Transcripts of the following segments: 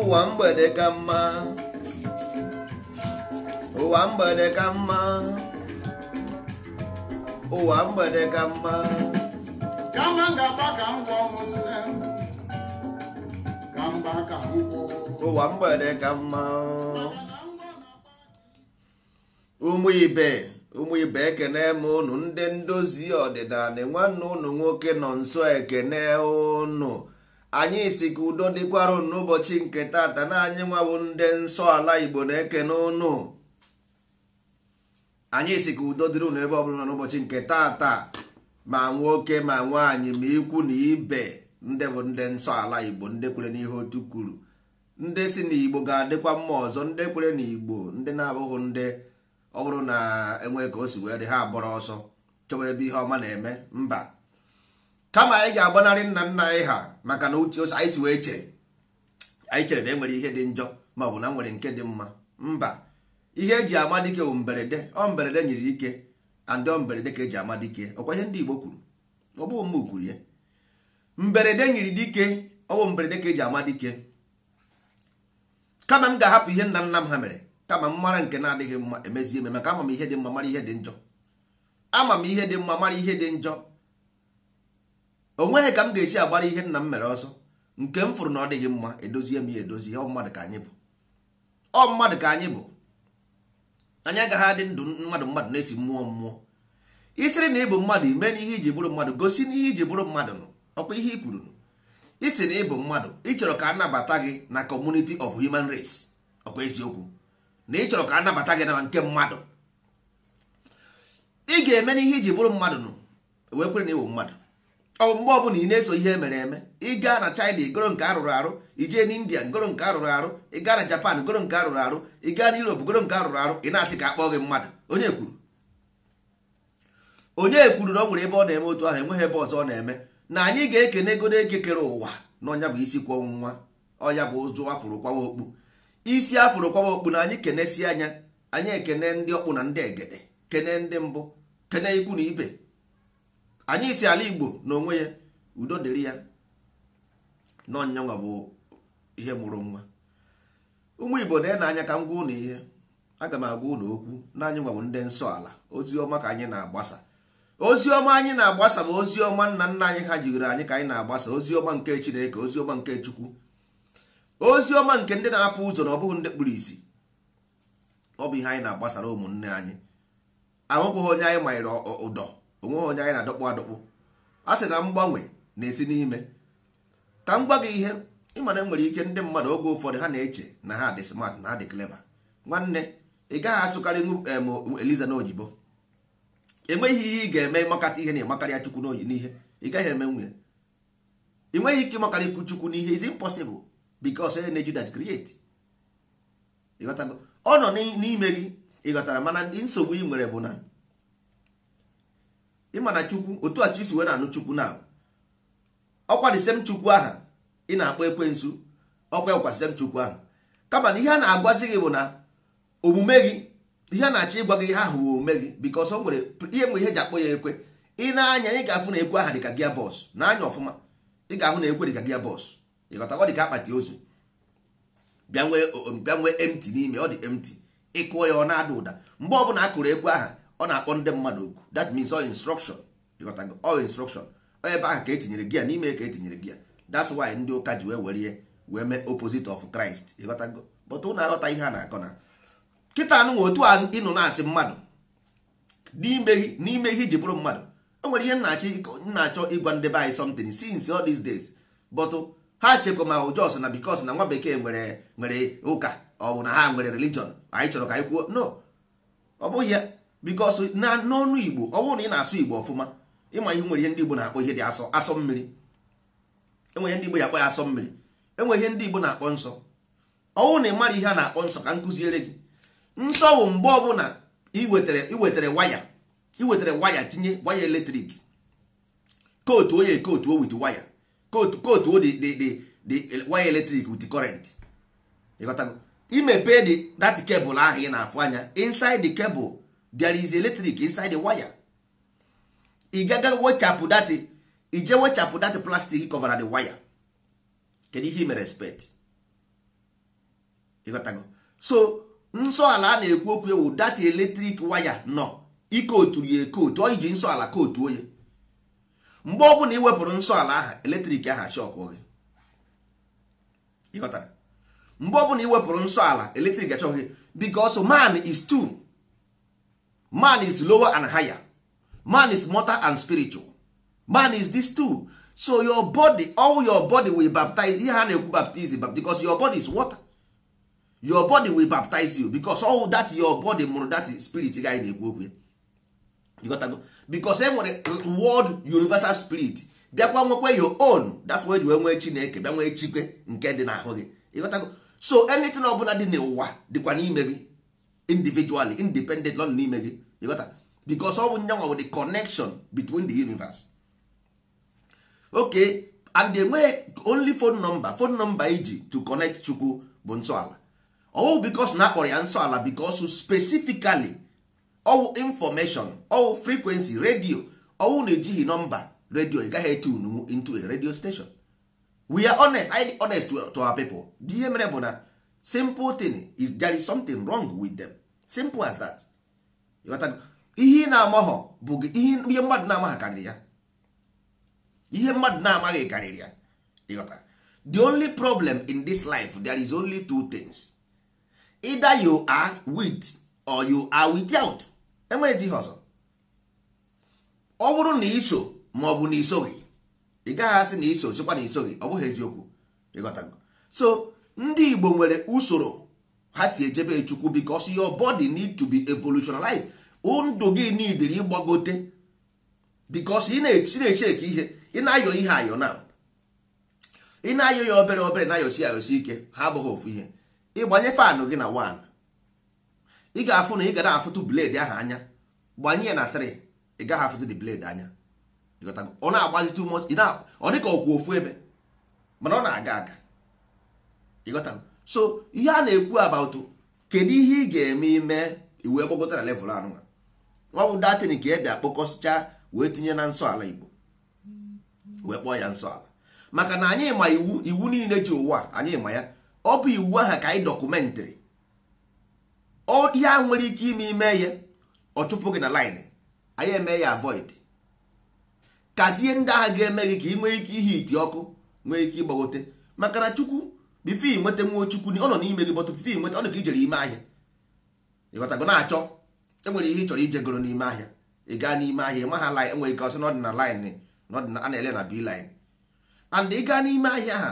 ụwa mgbede ka mma ụwa mgbede ka mma ụwa mgbede ka mma kama ngaba ka m gwọ ụmụnne m ka mba ka m ụwa mgbede ka mma ụmụ ibe ụmụ ibe ekene m ụnụ ndị ndozi ọdịnala nwanne ụnụ nwoke nọ nso ekene ụnụ anyị si ka udo n'ụbọchị nke tata na anyị nwabụ ndị nsọ ala igbo na eke n'ụnụ anyị si ka udo dịrị ụnụ ebe bụla n'ụbọchị nke tata ma nwoke ma nwaanyị ma ikwu na ibe ndị bụ ndị nsọ ala igbo ndị kwere n'ihe otu kwuru ndị si na igbo ga-adịkwa mma ọzọ ndị kwere na igbo ndị na-abụghị ndị ọ bụrụ na enwe ka o si wee dị ha abụrụ ọsọ chọwa ebe ihe ọma na-eme mba kama anyị ga-agbanarị nna nna anyị ha maka na uche ose anyị si wee chere anyị chere na e nwere ihe dị njọ ma ọ bụ na nwere nke dị mma mba ihe eji ama dike bụ mberede ọ mberede nyere ike andị ọ mberede ka eji ama dike ọkwa ihe ndị Igbo kwuru ọ bụghị mma kwuru ya mberede nyere dike ọ bụ mberede ka eji ama dike kama m ga-ahapụ ihe nna nna m ha mere kama m mara nke na-adịghị mma emezie eme maka ama m ihe dị mma mara ihe dị njọ ama m ihe dị mma mara ihe dị njọ onweghị ka m ga-esi agbara ihe nna m mere ọsọ nke m fụrụ na ọ dịghị mma edozie m ya edozi ọ mmadụ ka anyị bụ ọ mmadụ ka anyị bụ anyị agaghị adị ndụ mmadụ mmadụ na-esi mmụọ mmụọ isiri na ịbụ mmadụ ime n'ihe iji bụrụ mmadụ gosi n'ihe iji bụrụ mmadụ nụ ọkwa ihe i kwuru nụ isi na ịbụ mmadụ ịchọrọ ka anabata gị na community of human race ọkwa eziokwu na ịchọrọ ka anabata gị na nke mmadụ ị ga-eme n'ihe ihe iji bụrụ mmadụ nụ wee kwere na ịwụ mmadụ ọ mgbe ọbụla ị na-eso ihe mere eme ịga na China igoro nke a rụrụ arụ ijee na India ngoro nke arụrụ arụ gaa na Japan ngoro nke arụrụ arụ ị gaa na Europe ngoro nke rụrụ arụ ị na-asị ka akpọ gị mmadụ onye kwuru onye kwuru na ọ nwere ebe ọ na-eme otu ahụ enweghị ebe ọzọ ọ na-eme na anyị ga-ekene godo kere ụwa na ọnya bụ isi kwọ nwa ọya bụ ụzụ afụrụ kwawa okpu isi afụrụ kwawa okpu na anyị kenesie anya anyị ekene ndị ọkpụ na ndị egede kene ndị mbụ kene ikwu na ibe anyị si ala igbo n'onwe ya udo dịrị ya n'ọnyanwa bụ ihe mụrụ nwa ụmụ igbo na-ene anya ka m gwa ụnụ ihe aga m agwa ụnụ okwu na anyị nwabụ ndị nsọ ala ozi ọma ka anyị na-agbasa ozi ọma anyị na-agbasa bụ ozi ọma nna nna anyị ha jigoro anyị ka anyị na-agbasa ozi ọma nke chineke ozi ọma nke chukwu ozi ọma nke ndị na-afụ ụzọ na ọ bụghị ndị kpụrụ isi ọ bụ ihe anyị na-agbasara ụmụnne anyị anwụgwụghị onye anyị manyere ụdọ onweghị onye anyị na-adọkpụ adọkpụ a sị na mgbanwe na-esi n'ime ka m gwa gị ihe ịmana e nwere ike ndị mmadụ oge ụfọdụ ha na-eche na ha dị smart na ha dị clever nwanne ị gaghị asụkarị eliza na ojibo enweghị ihe ị ga-eme ịmakata ihe na ịmakarịa chukwu n'ihe ị gaghị eme nwunye ị nweghị ike ịmakarị ikwu chukwu n'ihe is impossible because onye na-eju that create ọ nọ n'ime gị ịghọtara mana nsogbu ị nwere bụ na ịma na chukwu otu a chisi wee na-anụ chukwu na ọkwa dị sem chukwu aha ị na-akpọ ekwensu ọkwa ọkwa sem chukwu aha kama na ihe a na-agwazi gị bụ na omume gị ihe a na-achọ ịgwa gị ihe ahụ wụ omume gị bikos ọsọ nwere ihe mgbe ihe ji akpọ ya ekwe ị na-anya ị ga-afụ na ekwe aha dịka gia bọs na-anya ọfụma ị ga-ahụ na ekwe dịka gia bọs ịghọtakwa dịka akpati ozu bịa nwee emti n'ime ọ dị emti ịkụọ ya ọ na-ada ụda mgbe ọbụla a kụrụ ekwe aha ọ na-akpọ ndị mmadụ oku that means all instruction ịghọtago all instruction ebe aha ka etinyere gị ya n'ime ka etinyere gị ya that's why ndị ụka ji wee were ihe wee mee opposite of Christ ịghọtago but ụnụ aghọta ihe a na-akọ na kịta nụ otu a ịnụ na-asị mmadụ n'ime ihe iji bụrụ mmadụ o nwere ihe nna achọ ịgwa ndị be anyị something since all these days but ha chekwa ma ụjọs na because na nwa bekee nwere nwere ụka ọ bụ na ha nwere religion anyị chọrọ ka anyị kwuo no ọ bụghị ya bikos na n'ọnụ igbo ọ bụrụ na ị na-asụ igbo ọfụma ịma ihe nwere ihe ndị igbo na-akpọ ihe dị asọ asọ mmiri enwe ihe ndị igbo ya akpọ ya asọ mmiri enwe ihe ndị igbo na-akpọ nsọ ọnwụ na ị mara ihe a na-akpọ nsọ ka nkụziere gị nsọ bụ mgbe ọbụla iwetara iwetara waya iwetara waya tinye waya eletrik kootu oye kootu o wit waya kootu kootu o dị e, waya eletrik wit kọrent ịghọtago imepe dị dat kebụl ahụ ị na-afụ anya inside the cable there is electric inside the wire ị gaga wechapụ dati ije wechapụ dati cover na the wire kedu ihe me respect ịghọtago so nsọ ala a na-ekwu okwu ewu dati electric wire nọ otu ya ekotu ọ ji nsọ ala kootu onye mgbe ọ bụla iwepụrụ nsọ ala ahụ eletrik ahụ achọkụ gị ịghọtara mgbe ọ bụla iwepụrụ nsọ ala eletrik achọkụ gị because man is too. man is lower and higher man is mortal and spiritual man is this too so your body all your body will baptize ihe a na-ekwu baptism because your body is water your body will baptize you because all that your body mụrụ that spirit guy na-ekwu okwu gotago bicos e nwere world universal spirit bịakwa nwekwa your own that's why you nwee chineke bịa nwee chikwe nke dị n'ahụ gị ịghọtago so anything ọbụla dị n'ụwa dịkwa n'ime gị individually independent lọ n'ime gị you got that? because ọ bụ nyanwa wey the connection between the universe okay and wey only phone number phone number iji to connect chukwu bụ nsọala ọwụ oh, because na akpọrọ ya nsọala because specifically ọwụ oh, information ọwụ oh, frequency radio ọwụ na-ejighị nọmba radio ị gaghị etun into a radio station we are honest I honest to our people ihe mere bụ na simple thing is there is something wrong with them simple as that ihe ị na-amaghọ bụ ihe mmadụ na-amaghị karịrị ya ihe mmadụ na-amaghị karịrị ya ịghọtara the only problem in this life there is only two things either you are with or you are without enweghịzi ihe ọzọ ọ bụrụ na iso ma ọ bụ na isoghị ị gaghị asị na iso chekwa na isoghị ọ bụghị eziokwu ịghọtago so ndị Igbo nwere usoro ha si ejebe chukwu because your body need to be evolutionalized ndụ gị nidiri ịgbagote because ị na-echeki ihe ị na-ayọ ihe ayọ na ị na-ayọ ya obere obere na-ayọsi ayọsi ike ha abụghị ofu ihe ịgbanye fanụ gị na 1 ị ga-afụ na ị ga na-afụtụ blade ahụ anya gbanye ya na 3 ị gaghị afụtụ the blade anya ọ na-agbazi too much ọ dịka ọkwa ofu ebe mana ọ na-aga aga ịghọtago so ihe a na-ekwu about kedu ihe ị ga-eme ime iwu ekpokọta na level anụnwa ọ bụ datin ka ebe akpọkọsịcha wee tinye na nsọ ala igbo wee kpọọ ya nsọ ala maka na anyị ma iwu iwu niile ji ụwa anyị ma ya ọ bụ iwu aha ka anyị dọkụmentịrị ihe a nwere ike ime ime ya ọ chụpụ gị na line anyị eme ya avoid kazie ndị agha ga-eme gị ka ị nwee ike ihe iti ọkụ nwee ike ịgbagote maka na chukwu bifo inweta nwochukwu ọ nọ n'ime gị bọtụ bifo inweta ọ dị ka ijere ime ahịa ịghọtago na-achọ enwere ihe ị chọrọ ije goro n'ime ahịa ị gaa n'ime ahịa ma ha lin enwere ike ọsị n'ọdịna lin a na-ele na bi lin and ị gaa n'ime ahịa ha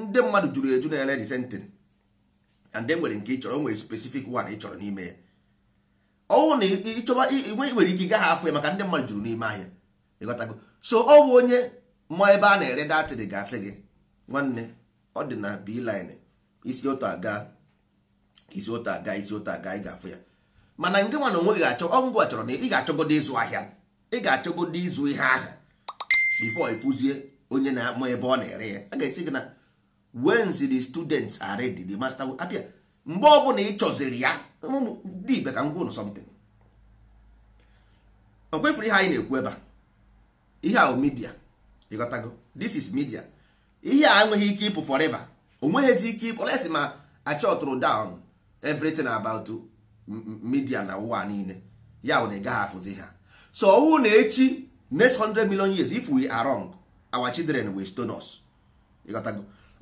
ndị mmadụ juru eju na ele disentịrị and enwere nke ị chọrọ e nwere spesifik one ị chọrọ n'ime ya ọnwụ na ịchọba nwere ike gaghị afọ ya maka ndị mmadụ juru n'ime ahịa ịghọtago so ọ bụ onye ma ebe a na-ere datịrị gasị gị nwanne ọ dị na beeline isi otu aga isi otu aga isi otu aga ị ga-afụ ya mana nke nwa onwe gị achọ ọngwa chọrọ na ị ga-achọgodo ịzụ ahịa ị ga-achọgodo ịzụ ihe ahụ before ịfụzie onye na-amụ ebe ọ na-ere ya a ga-esi gị na wens the students are ready the master will appear mgbe ọ bụla ị chọziri ya dị ibe ka ngwa ụlọ something o kwefuru ihe anyị na-ekwu ebe a ihe a midia ịghọtago this is media ihe a enweghị ike ịpụ forever onweghịzi ike ịpụ lesi ma achọtụrụ down everything about media na ụwa niile ya bụ na ị gaghị afụzi ha so ọwụ na echi next hundred million years if we are wrong our children will stone us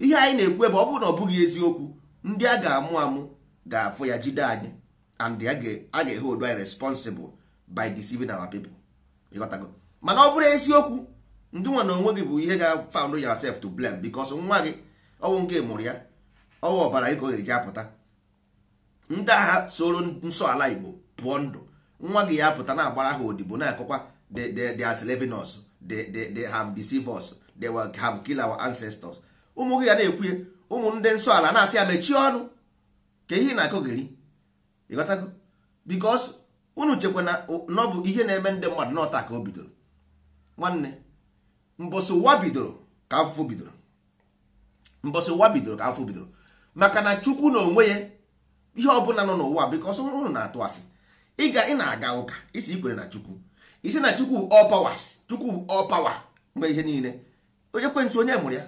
ihe anyị na-ekwu ebe ọ bụrụ na ọ bụghị eziokwu ndị a ga-amụ amụ ga-afụ ya jide anyị and a ga-ehe odo anyị responsible by deceiving our people mana ọ bụrụ eziokwu ndị nwa na onwe gị bụ ihe ga-found yourself to blame because nwa gị ọwụ nke mụrụ ya ọnwụ ọbara gị ka ọ ga-eji apụta ndị agha soro nsọ ala igbo pụọ ndụ nwa gị ya apụta na-agbara ha odibo na-akọkwa they are slaving us they have they have kill our ancestors ụmụ gị ya na-ekwuye ụmụ ndị nsọ ala na-asị ya mechie ọnụ ka ihe na-akọgeri ịghọtago because unu chekwa na ọ bụ ihe na-eme ndị mmadụ n'ọta ka o bidoro nwanne mbọsị ụwa bidoro ka afụfụ bidoro mbọsị ụwa bidoro ka afụfụ bidoro maka na chukwu na onwe ya ihe ọbụla nọ n'ụwa because ụnụ na-atụ asị ịga ị na-aga ụka isi ikwere na chukwu isi na chukwu all powers chukwu all power mgbe ihe niile onye kwentị onye mụrụ ya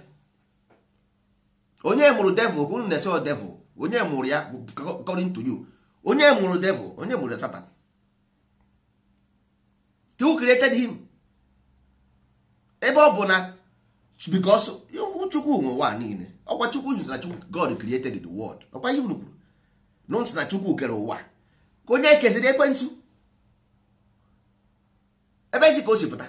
onye mụrụ devil ka unu na-ese devil onye mụrụ ya according to you onye mụrụ devil onye mụrụ satan you created him ebe ọ bụ na chukwu nwe ụwa niile ọkwa chukwu jụzara chukwu god created the world ọkwa ihe unu kwuru na chukwu kere ụwa ka onye ekeziri ekwentị ebe ezi ka o si pụta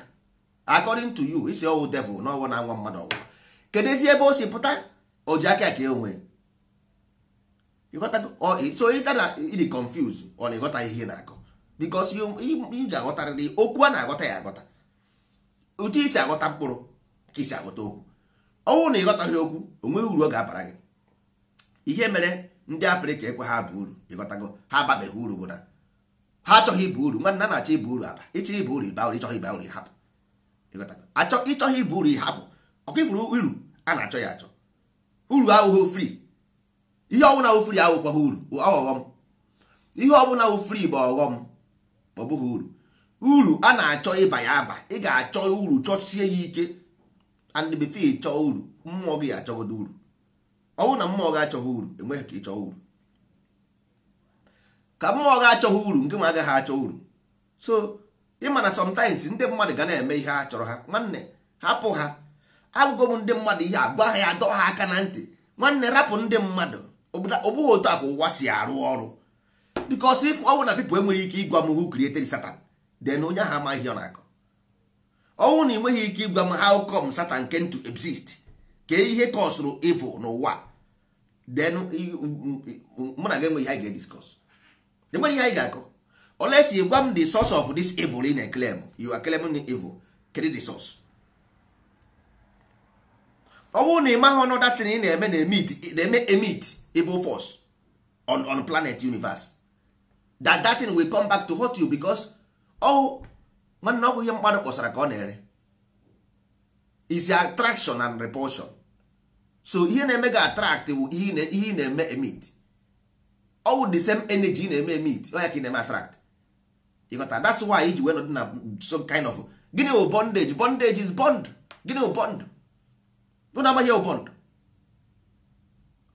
according to you isi ọwụ devil na ọwụ na-anwa mmadụ ọwụwa kedu ezi ebe o si pụta o ji aka aka onwe e so ịta na ịdị confuse ọ na-ịghọta ihe na-akọ because iji aghọtarịrị okwu a na-aghọta ya aghọta otu isi aghọta mkpụrụ ka isi aghọta okwu ọnwụ na ịghọtaghị okwu onweghị uru ọ ga-abara gị ihe mere ndị afrịka ekwe ha bụ uru ịghọtago ha ababeghị uru bụ na ha achọghị ịba uru nwanna na-achọ ịba uru aba ịchọ ịba uru ịba uru ịchọghị ịba uru ịhapụ achọ ịchọghị ịba uru ịhapụ ọkụ ifuru uru a na-achọ ya achọ uru ahụghị ofri ihe ọbụla ofri ahụkwaghị uru ọghọghọm ihe ọbụla ofri bụ ọghọm ọ uru uru a na-achọ ịba ya aba ị ga-achọ uru chọchie ya ike and chọọ uru mmụọ gị achọgodo uru ọ bụrụ na mmụọ gị achọghị uru enweghị ka ịchọọ uru ka mmụọ gị achọghị uru nke ma agaghị achọ uru so ịmana na sometimes ndị mmadụ ga na-eme ihe a chọrọ ha nwanne hapụ ha abụgo m ndị mmadụ ihe agwa ha ya ha aka na ntị nwanne rapụ ndị mmadụ ọ otu a ka ụwa si arụ ọrụ because if ọ bụ na people enwere ike ịgwa m who created Satan then onye ahụ amaghị ọ na-akọ ọnwụ na ị nweghị ike ịgwa m how come Satan came to exist ka ihe kọsụrụ evil n'ụwa then mụ na gị enweghị ihe anyị ga-ediscuss enweghị ihe anyị ga-akọ unless you gwa m the source of this evil in a claim you are claiming the evil kedu the source ọ bụrụ na ị maghị ọnụ datin ị na-eme na-eme emit evil force on on planet universe that datin will come back to haunt you because ọwụ nwanne ọgwụ ihe mmadụ kpọsara ka ọ na-ere is attraction and repulsion so ihe na-eme gị attract wụ ihe ị na-eme emit ọwụ oh, the same energy ị na-eme emit like oh, ka ị na-eme attract ịghọta that's why iji wee nọdụ na some kind of gịnị wụ bondage bondage is bond gịnị wụ bond bụ na amaghị bond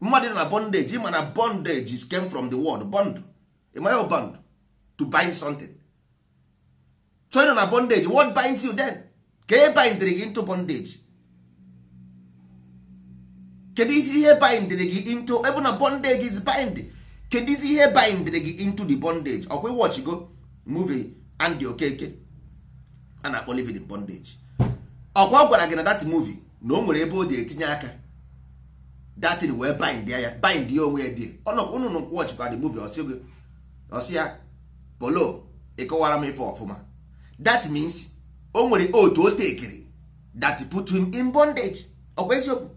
mmadụ na bondage ịma na bondage came from the word bond ịmaghị bond to bind something so ị nọ na bondage what binds you then ka e bindịrị gị into bondage kedu isi ihe bindịrị gị into ebe na bondage is bind kedu isi ihe bindịrị gị into the bondage ọkwa watch go movie Andy Okeke a na-akpọ living bondage ọkwa gwara gị na dat movie na o nwere ebe o ji etinye aka datin wee bind ya bind ya onwe ya di ọnụnụ watch kwa the movie ọsị ya polo ịkọwara m ife ọfụma that means o nwere otu o tekere that put him in bondage ọkwa eziokwu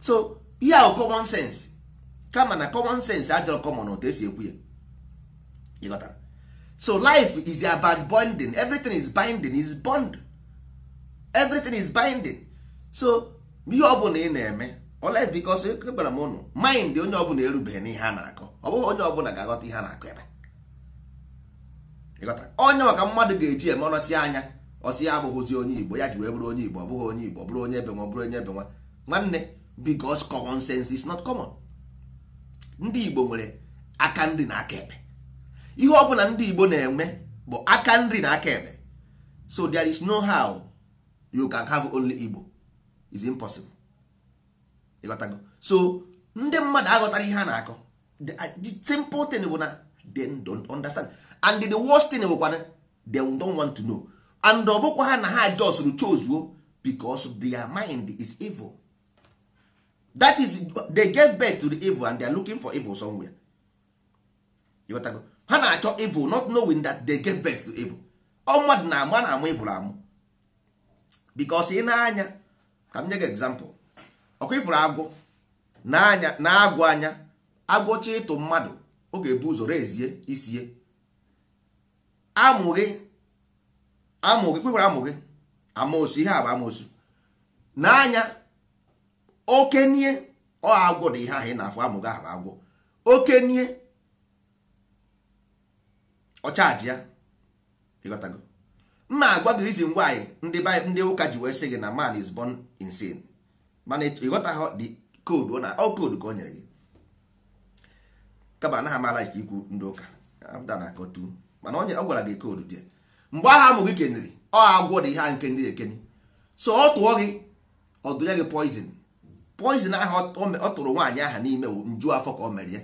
so ihe ahụ common sense kama na common sense adịrọ common otu esi ekwu ya ịghọtara so life is about bonding everything is binding is bond everything is binding so ihe ọbụla ị na-eme oles bikos eh, gwara m ụnụ mind onye ọbụla erubeghị n'ihe a na-akọ ọ bụghị onye ọbụla ga-aghọta ihe a na-akọ ebe onye maka mmadụ ga-eji eme ọnọsi anya ọsị ya abụghịzi onye igbo ya ji wee bụrụ onye igbo ọ onye igbo bụrụ onye ebe nwa bụrụ onye nwanne because common sense is not common ndị igbo nwere aka nri na aka ekpe ihe ọ bụla ndị igbo na-enwe bụ aka nri na aka ekpe so there is no how you can have only igbo is impossible so ndị mmadụ aghọtara ihe a na-akọ the simple thing bụ na they don't understand and the worst thing bụkwana they don want to know and ọ bụkwa ha na ha just chozuo because their mind is evil that is they get birth to the evil and they are looking for evil somewhere ha na-achọ evil not knowing that they get birth to evil ọ mmadụ na-ama na-amụ evil amụ because ị na-anya ka m nye gị example ọkụ ifuru agwọ na-agwọ anya agwọcha ịtụ mmadụ ọ ga-ebu ụzọ rezie isie Amụghị amụghị amụ gị kwekwara amụ amosu ihe a bụ amosu n'anya okenye ọ agwọ dị ihe ahụ ị na-afụ amụghị gị agwụ agwọ okenye ọchaji ya ịghọtago mma agwa gị ngwa anyị ndị ndị ụka ji wee sị gị na man is born insane mana ha dị koodu na ọ koodu ka o nyere gị kaba anaghị amala ikwu ndị ụka abụda na mana ọ gwara gị koodu dị mgbe agha amụ gị keniri ọ agwọ dị ihe a nke ndị ekeni so ọ tụọ gị ọ dụnye gị poizin poizin ahụ ọ tụrụ nwaanyị aha n'ime nju afọ ka ọ mere ya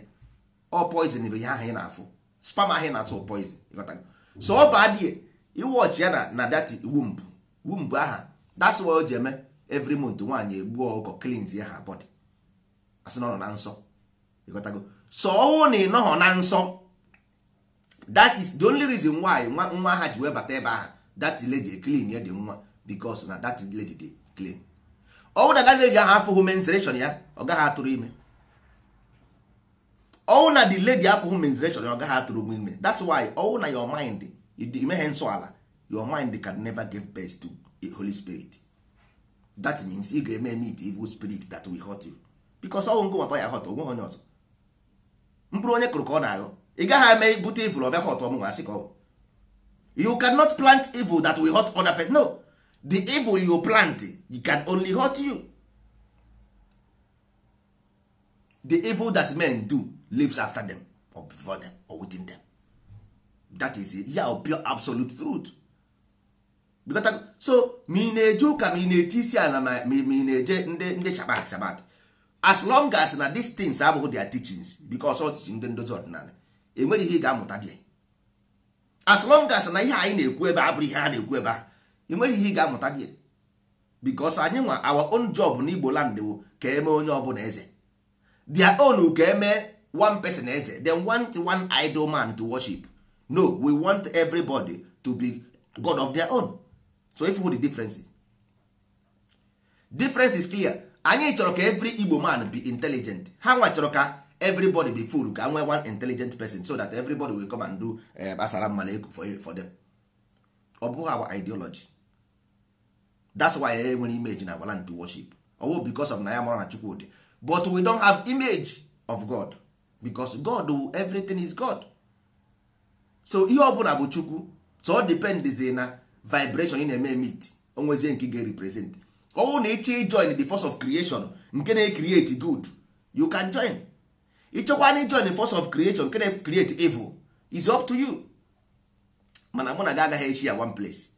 ọ poizin bụ ihe ahụ ị na-afụ spam ahụ ị na-atụ poizin so ọ baa dị iwọchi ya na na dati wumbụ wumbụ aha that's why o ji eme every month nwaanyị egbuo ọkụkọ cleans ya ha body asị na ọ nọ na nsọ so ọ wụ na ị nọghọ na nsọ that is the only reason why nwa nwa ha ji wee bata ebe ahụ that lady e clean ya dị nwa because na that lady dey clean ọ bụ na that lady ahụ afụghị menstruation ya ọ gaghị atụrụ ime ọwụ na the lady afụghị menstruation ya ọ gaghị atụrụ ime that's why ọwụ na your mind imeghe nsọ ala your mind can never give birth to a holy spirit that means ị ga-eme meet evil spirit that will hurt you because ọwụ ngụ nwata ya hot onweghị onye ọzọ mkpụrụ onye kụrụ ka ọ na-aghọ ị gaghị eme bute evil ọbịa hot ọmụnwa asị ka ọ you cannot plant evil that will hurt other person no the evil you plant you can only hurt you the evil that men do lives after them or before them or within them that is ya yeah, pure absolute truth because so ma ị na-eje ụka ma ị na-eti isi ala ma ị na-eje ndị ndị shabat shabat as long as na these things abụghị their teachings because ọ tichi ndị ndozi ọdịnala enwere ihe ị ga-amụta dị as long as na ihe anyị na-ekwu ebe a ihe ha na-ekwu ebe a ihe ị ga-amụta dị because anyị nwa our own job na Igbo land wo ka eme onye ọbụla eze their own ka eme one person eze then want one idol man to worship no we want everybody to be god of their own so if the difference differences difference is clear anyị chọrọ ka every Igbo man be intelligent ha nwa chọrọ ka everybody be full ka nwee one intelligent person so that everybody will come and do gbasara eh, uh, eku for, them ọ bụghị our ideology that's why e eh, nwere image na agwala to worship ọwụ oh, because of na ya mara na chukwudi but we don't have image of god because god everything is god so ihe ọbụla bụ chukwu so ọ dependizi na vibration ị na-eme emit onwezie nke ga-represent ọwụ na ịchọ ijoin the force of creation nke na-ecreate good you can join ịchọkwa na jon the force of creation nke na-create evil is up to you mana mụ na gị agaghị echi ya one place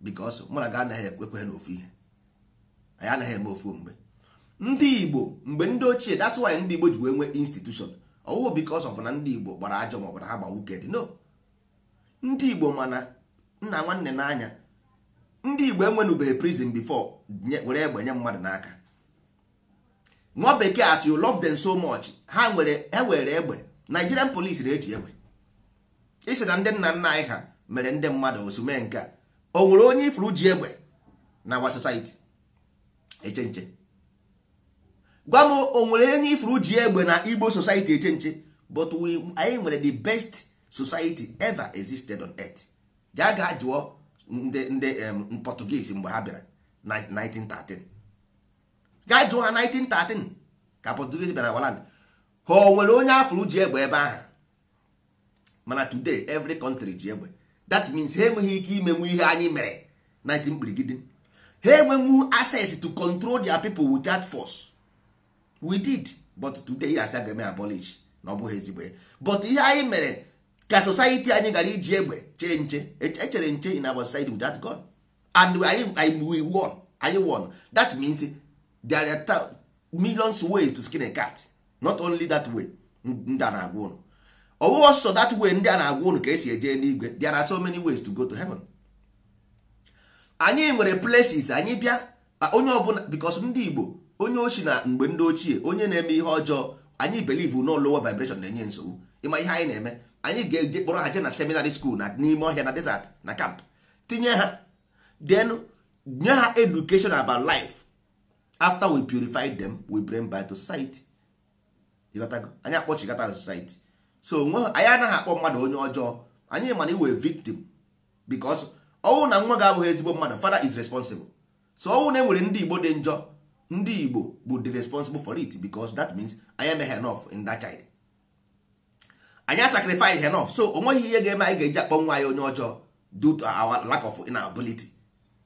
because mụ na gị anaghị ekwe na ofu ihe anyị anaghị eme ofu mgbe ndị igbo mgbe ndị ochie that's why ndị igbo ji wee nwee institution ọwụwụ oh, because of na ndị igbo gbara ajọ maọbụ na ha gba wuked no ndị igbo mana nna nwanne n'anya ndị igbo enwenụbeghị prison before were egbe mmadụ n'aka nwa bekee as you love them so much ha nwere ewere egbe Nigerian police na-eji egbe isi na ndị nna nna anyị ha mere ndị mmadụ osume nke a o nwere onye ifuru ji egbe na our society eche nche gwa m o nwere onye ifuru ji egbe na Igbo society eche nche but we anyị nwere the best society ever existed on earth ga ga jụọ ndị ndị Portuguese mgbe ha bịara 1913 gaa jụọ ha 1913 ka Portuguese bịara waland ha o nwere onye afro ji egbe ebe ahụ mana today every country ji egbe that means ha enweghị ike imenwu ihe anyị mere 19 kpirigidi ha enwenwu access to control their people with force we did but today ya asị agame eme abolish na ọ bụghị ezigbo ya but ihe anyị mere ka society anyị gara iji egbe chee nche echere nche in our society with god and anyị anyị won that means there are millions ways to skin a cat not only that way ndị a na-agwa ụnụ ọwụwa sọ that way ndị a na-agwa ụnụ ka esi eje n'igwe there are so many ways to go to heaven anyị nwere places anyị bịa onye ọbụla because ndị Igbo onye ochi na mgbe ndị ochie onye na-eme ihe ọjọọ anyị believe no lower vibration na-enye nsogbu ịma ihe anyị na-eme anyị ga-eje kpọrọ ha je na seminary school na n'ime ọhịa na desert na camp tinye ha den nye ha education about life after we purify them we bring back to society anyị akpọchigata to society so nwa anyị anaghị akpọ mmadụ onye ọjọọ anyị mana iwe victim because ọnwụ na nwa ga-abụghị ezigbo mmadụ father is responsible so ọnwụ na enwere ndị igbo dị njọ ndị igbo bụ the responsible for it because that means anyị emeghị enough in that child anyị sacrifice enough so o ihe ga-eme anyị ga-eji akpọ nwa anyị onye ọjọọ due to our lack of inability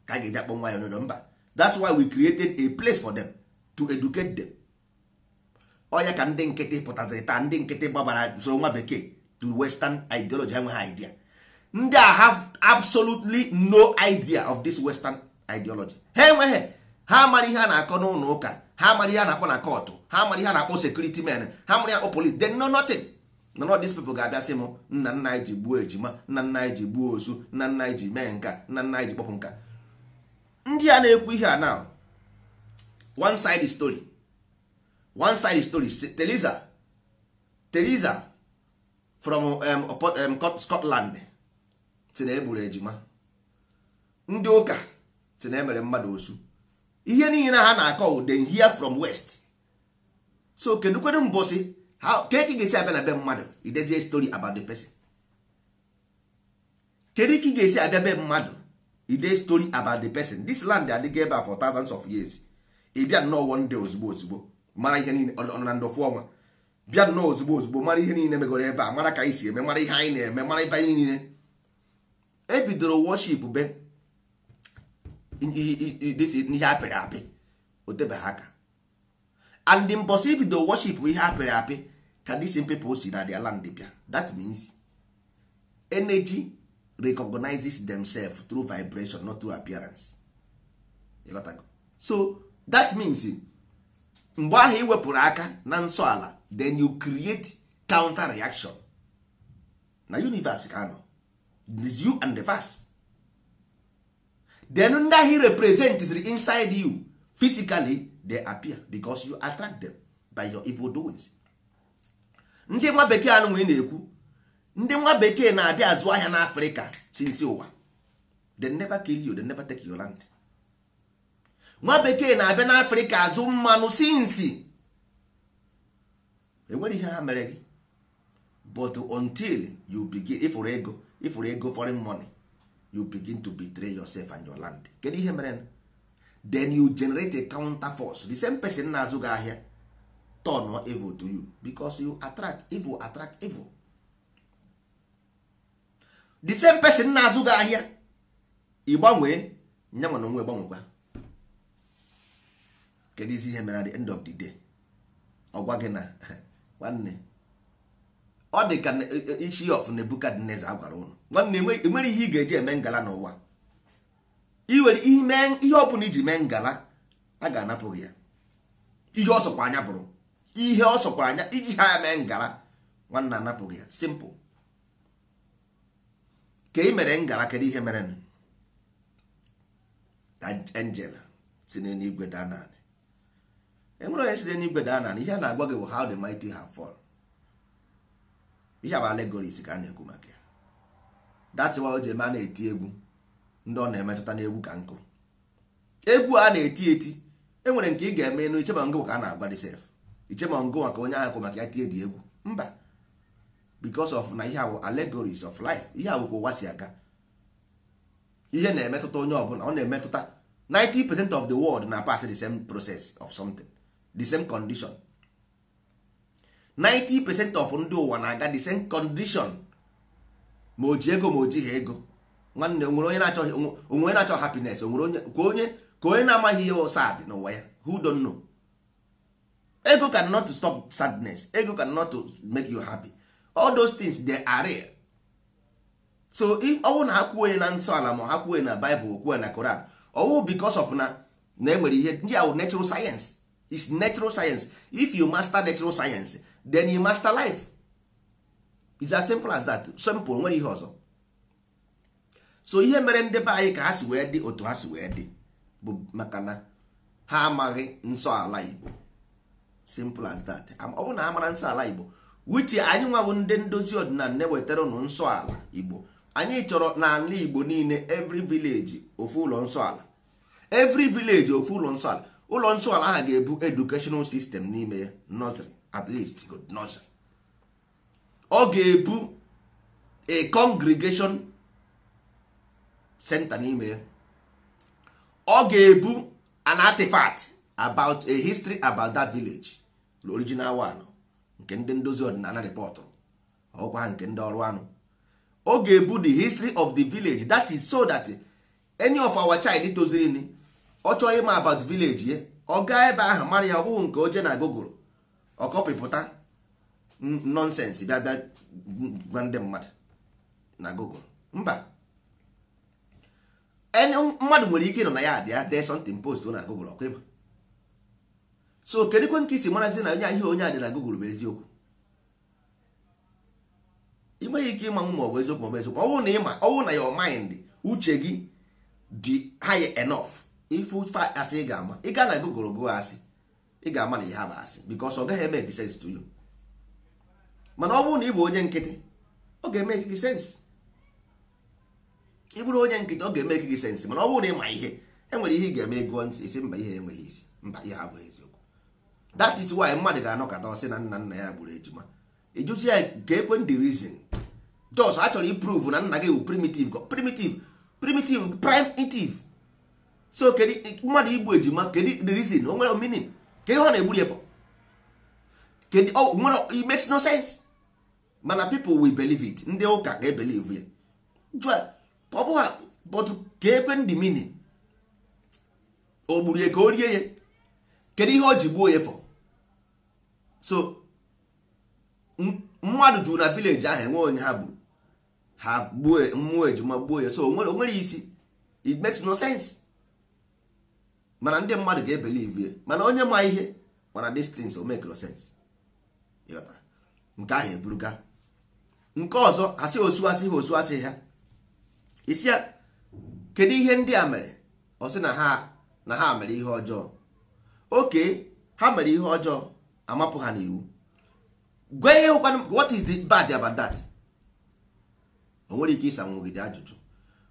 ka anyị ga-eji akpọ nwa anyị onye ọjọọ mba that's why we created a place for them to educate them onya ka ndị nkịtị pụtaziri taa ndị nkịtị gbabara soro nwa bekee to western ideology enweghị idea ndị a have absolutely no idea of this western ideology ha enweghị ha mara ihe a na-akọ n'ụlọ ụka ha mara ihe a na-akpọ na kọtụ ha mara ihe a na-akpọ sekuriti men ha mara ihe akpọ police they know nothing none of these people ga-abịa sị m nna nna anyị ji gbuo ejima nna nna anyị ji gbuo ozu nna nna anyị ji mee nka nna nna anyị ji kpọpụ nka ndị a na-ekwu ihe a now one side story one side story teliza teliza from um, um, Scotland si na egburu ejima ndị ụka si na emere mmadụ osu ihe niile ha na-akọ they hear from west so kedukwedu mbọsị ka eke ga-esi abịa na be mmadụ idezie story about the person kedu ike ị ga-esi abịa be mmadụ e story about the person this land adịghị ebe for thousands of years ị bịa nnọọ one day ozugbo ozugbo mara ihe niile ọ na ndọfu ọnwa bịa nnọọ ozugbo ozugbo mara ihe niile megoro ebe a mara ka anyị si eme mara ihe anyị na-eme mara ebe anyị niile ebidoro worship be ihe apịrị apị otebeghị aka and the mbọsị ibido worship ihe apịrị apị ka these people si na their land bịa that means energy recognizes themselves through vibration not through appearance so that means mgbe ahụ ị aka na nsọ ala then you create counter reaction na universe ka anọ is you and the verse then ndị ahụ representitry inside you physically they appear because you attract them by your evil doings ndị nwa bekee anụ nwee na-ekwu ndị nwa bekee na-abịa azụ ahịa n'africa sinsi ụwa they never kill you they never take your land nwa bekee na-abịa n'africa azụ mmanụ sinsi enwere ihe ha mere gị but until you begin ịfụrụ ego ịfụrụ ego foreign money you begin to betray yourself and your land kedu ihe mere then you generate a counter force the same person na-azụ gị ahịa turn evil to you because you attract evil attract evil the same person na-azụ gị ahịa ị gbanwee nya nwana onwe gbanwekwa kedu isi ihe mere at the end of the day ọ gwa gị na nwanne ọ dị ka e, e, ichi of Nebukadneza a gwara ụnụ nwanne enwere e ihe ị ga-eji eme ngala n'ụwa iwere ihe ọ bụla iji mee ngala a ga-anapụ gị ya ihe ọ sọkwa anya bụrụ ihe ọ sọkwa anya iji ha ya mee ngala nwanne anapụ gị ya simple ka ị mere ngala kedu ihe mere angel si n'eluigwe daa naanị enwere onye si n'eluigwe daa naanị ihe a na-agwa gị bụ how the mighty have fallen ihe bụ allegories ka a na-ekwu maka ya dat why o ji eme a na-eti egwu ndị ọ na-emetụta n'egwu ka nkụ egwu a na-eti eti enwere nke ị ga-eme enu ichema ngụ ka a na-agwa disef ichema ngụ maka onye ahụ kwụ maka ya tie dị egwu mba because of na ihe awụ allegories of life ihe awụkwa ụwa si aga ihe na-emetụta onye ọbụla ọ na-emetụta 90% of the world na pass the same process of something the same condition 90% of ndị ụwa na-aga the same condition ma o ji ego ma o ha ego nwanne onwere onye na-achọ onwere na-achọ happiness onwere onye ka onye ka onye na-amaghị ihe sad n'ụwa ya who don't know ego can not to stop sadness ego can not to make you happy all those things they are real. so if ọ na ha kwuo na nsọ ala ma ha kwuo na Bible kwuo na Koran ọwụ because of na na enwere ihe ndị ahụ natural science is natural science if you master natural science then you master life it's as simple as that simple nwere ihe ọzọ so ihe mere ndị be anyị ka ha si wee dị otu ha si wee dị bụ maka na ha amaghị nsọ ala Igbo simple as that ọ bụrụ na ha mara nsọ ala Igbo wichi anyị nwabụ ndị ndozi ọdịnala na-ewetara ụnụ nsọ ala igbo anyị chọrọ n'ala igbo niile evri vileji ofu ụlọ nsọ ala every ofu ụlọ nsọ ala ụlọ nsọ ala ahụ ga-ebu educational sistem n'ime ya at least good ọ ga-ebu a congregation center n'ime ya ọ ga-ebu an artifact about a history about that village the original one nke ndị ndozi ọdịnala rịpọtụrụ ọkwa ha nke ndị ọrụ anụ ọ ga-ebu the history of the village that is so that any of our child toziri ni ọ chọọ ịma about village ye ọ gaa ebe ahụ mara ya ọ nke oje na gogoro ọkọpịpụta nonsense bịa bịa gwa ndị mmadụ na gogoro mba mmadụ nwere ike ịnọ na ya adị dee something post na gogoro ọkwa ịba so kedụkwe nke isi marazi na onye ihe onye a dị na Google bụ eziokwu ị ike ịmanwụ ma ọ bụ eziokwu ma ọ bụ eziokwu ọwụ na ịma ọwụ na your mind uche gị dị high enough ife asị ị ga-ama ị gaa na Google gụọ asị ị ga-ama na ihe bụ asị because ọ gaghị eme eki sense to you mana ọ bụrụ na ị bụ onye nkịtị ọ ga-eme ekiki sense ị bụrụ onye nkịtị ọ ga-eme ekiki sense mana ọ bụrụ na ịma ma ihe enwere ihe ị ga-eme gụọ ntị isi mba ihe enweghị isi mba ihe abụghị eziokwu that is why mmadụ ga-anọkọta ọsị na nna nna ya gburu ejima ịjụzi ya ga ekwe the reason jos a chọrọ iprove na nna gị bụ primitive primitive primitive primitive so kedu mmadụ igbu ejima kedu the reason o nwere meaning kedu ihe ọ na-egburu ya for kedu o nwere it makes no sense mana people will believe it ndị ụka ga-ebelieve ya jụa ọ bụghị but ka ekwe ndị meaning o ya ka o rie ya kedu ihe o ji gbuo ya for so mmadụ jụrụ na vileji ahụ enwe onye ha bụ ha gbuo mmụọ ejima gbuo ya so onwere isi it makes no sense mana ndị mmadụ ga-ebelive mana onye ma ihe mana these things o make no sense nke ahụ eburuga nke ọzọ asị osuasị ha osuasị ha isi ya kedu ihe ndị a mere ọ sị na ha mere ihe ọjọọ oke ha mere ihe ọjọọ amapụ ha n'iwu gwa ihe ụkwanụ what is the bad about that o nwere ike ịsa nwogide ajụjụ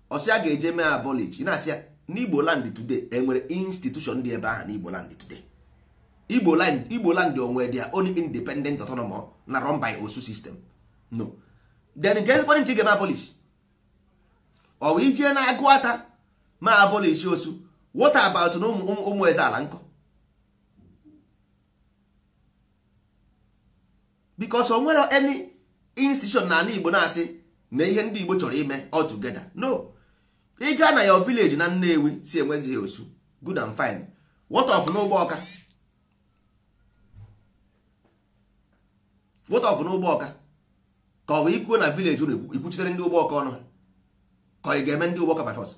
ọsị a ga-eje mee abolij na-asị ya n'igbo land today enwere institution dị ebe aha n'igbo land today igbo land igbo land onwe dị ya only independent autonomous na run by osu system no then nke ezigbo nke ga-eme abolish ọ bụ ijee na agụ ata ma abolish osu Wota about na ụmụ eze ala nkọ bikos o nwere any institution na ala igbo na-asị na ihe ndị igbo chọrọ ime all together no ị gaa na your village na nnewi si enwezighị osu good and fine what of n'ụgbọ ọka what of n'ụgbọ ọka ka ọ bụ ikwuo na village unu ikwuchitere ndị ụgbọ ọka ọnụ ha ka ị ga-eme ndị ụgbọ ọka by force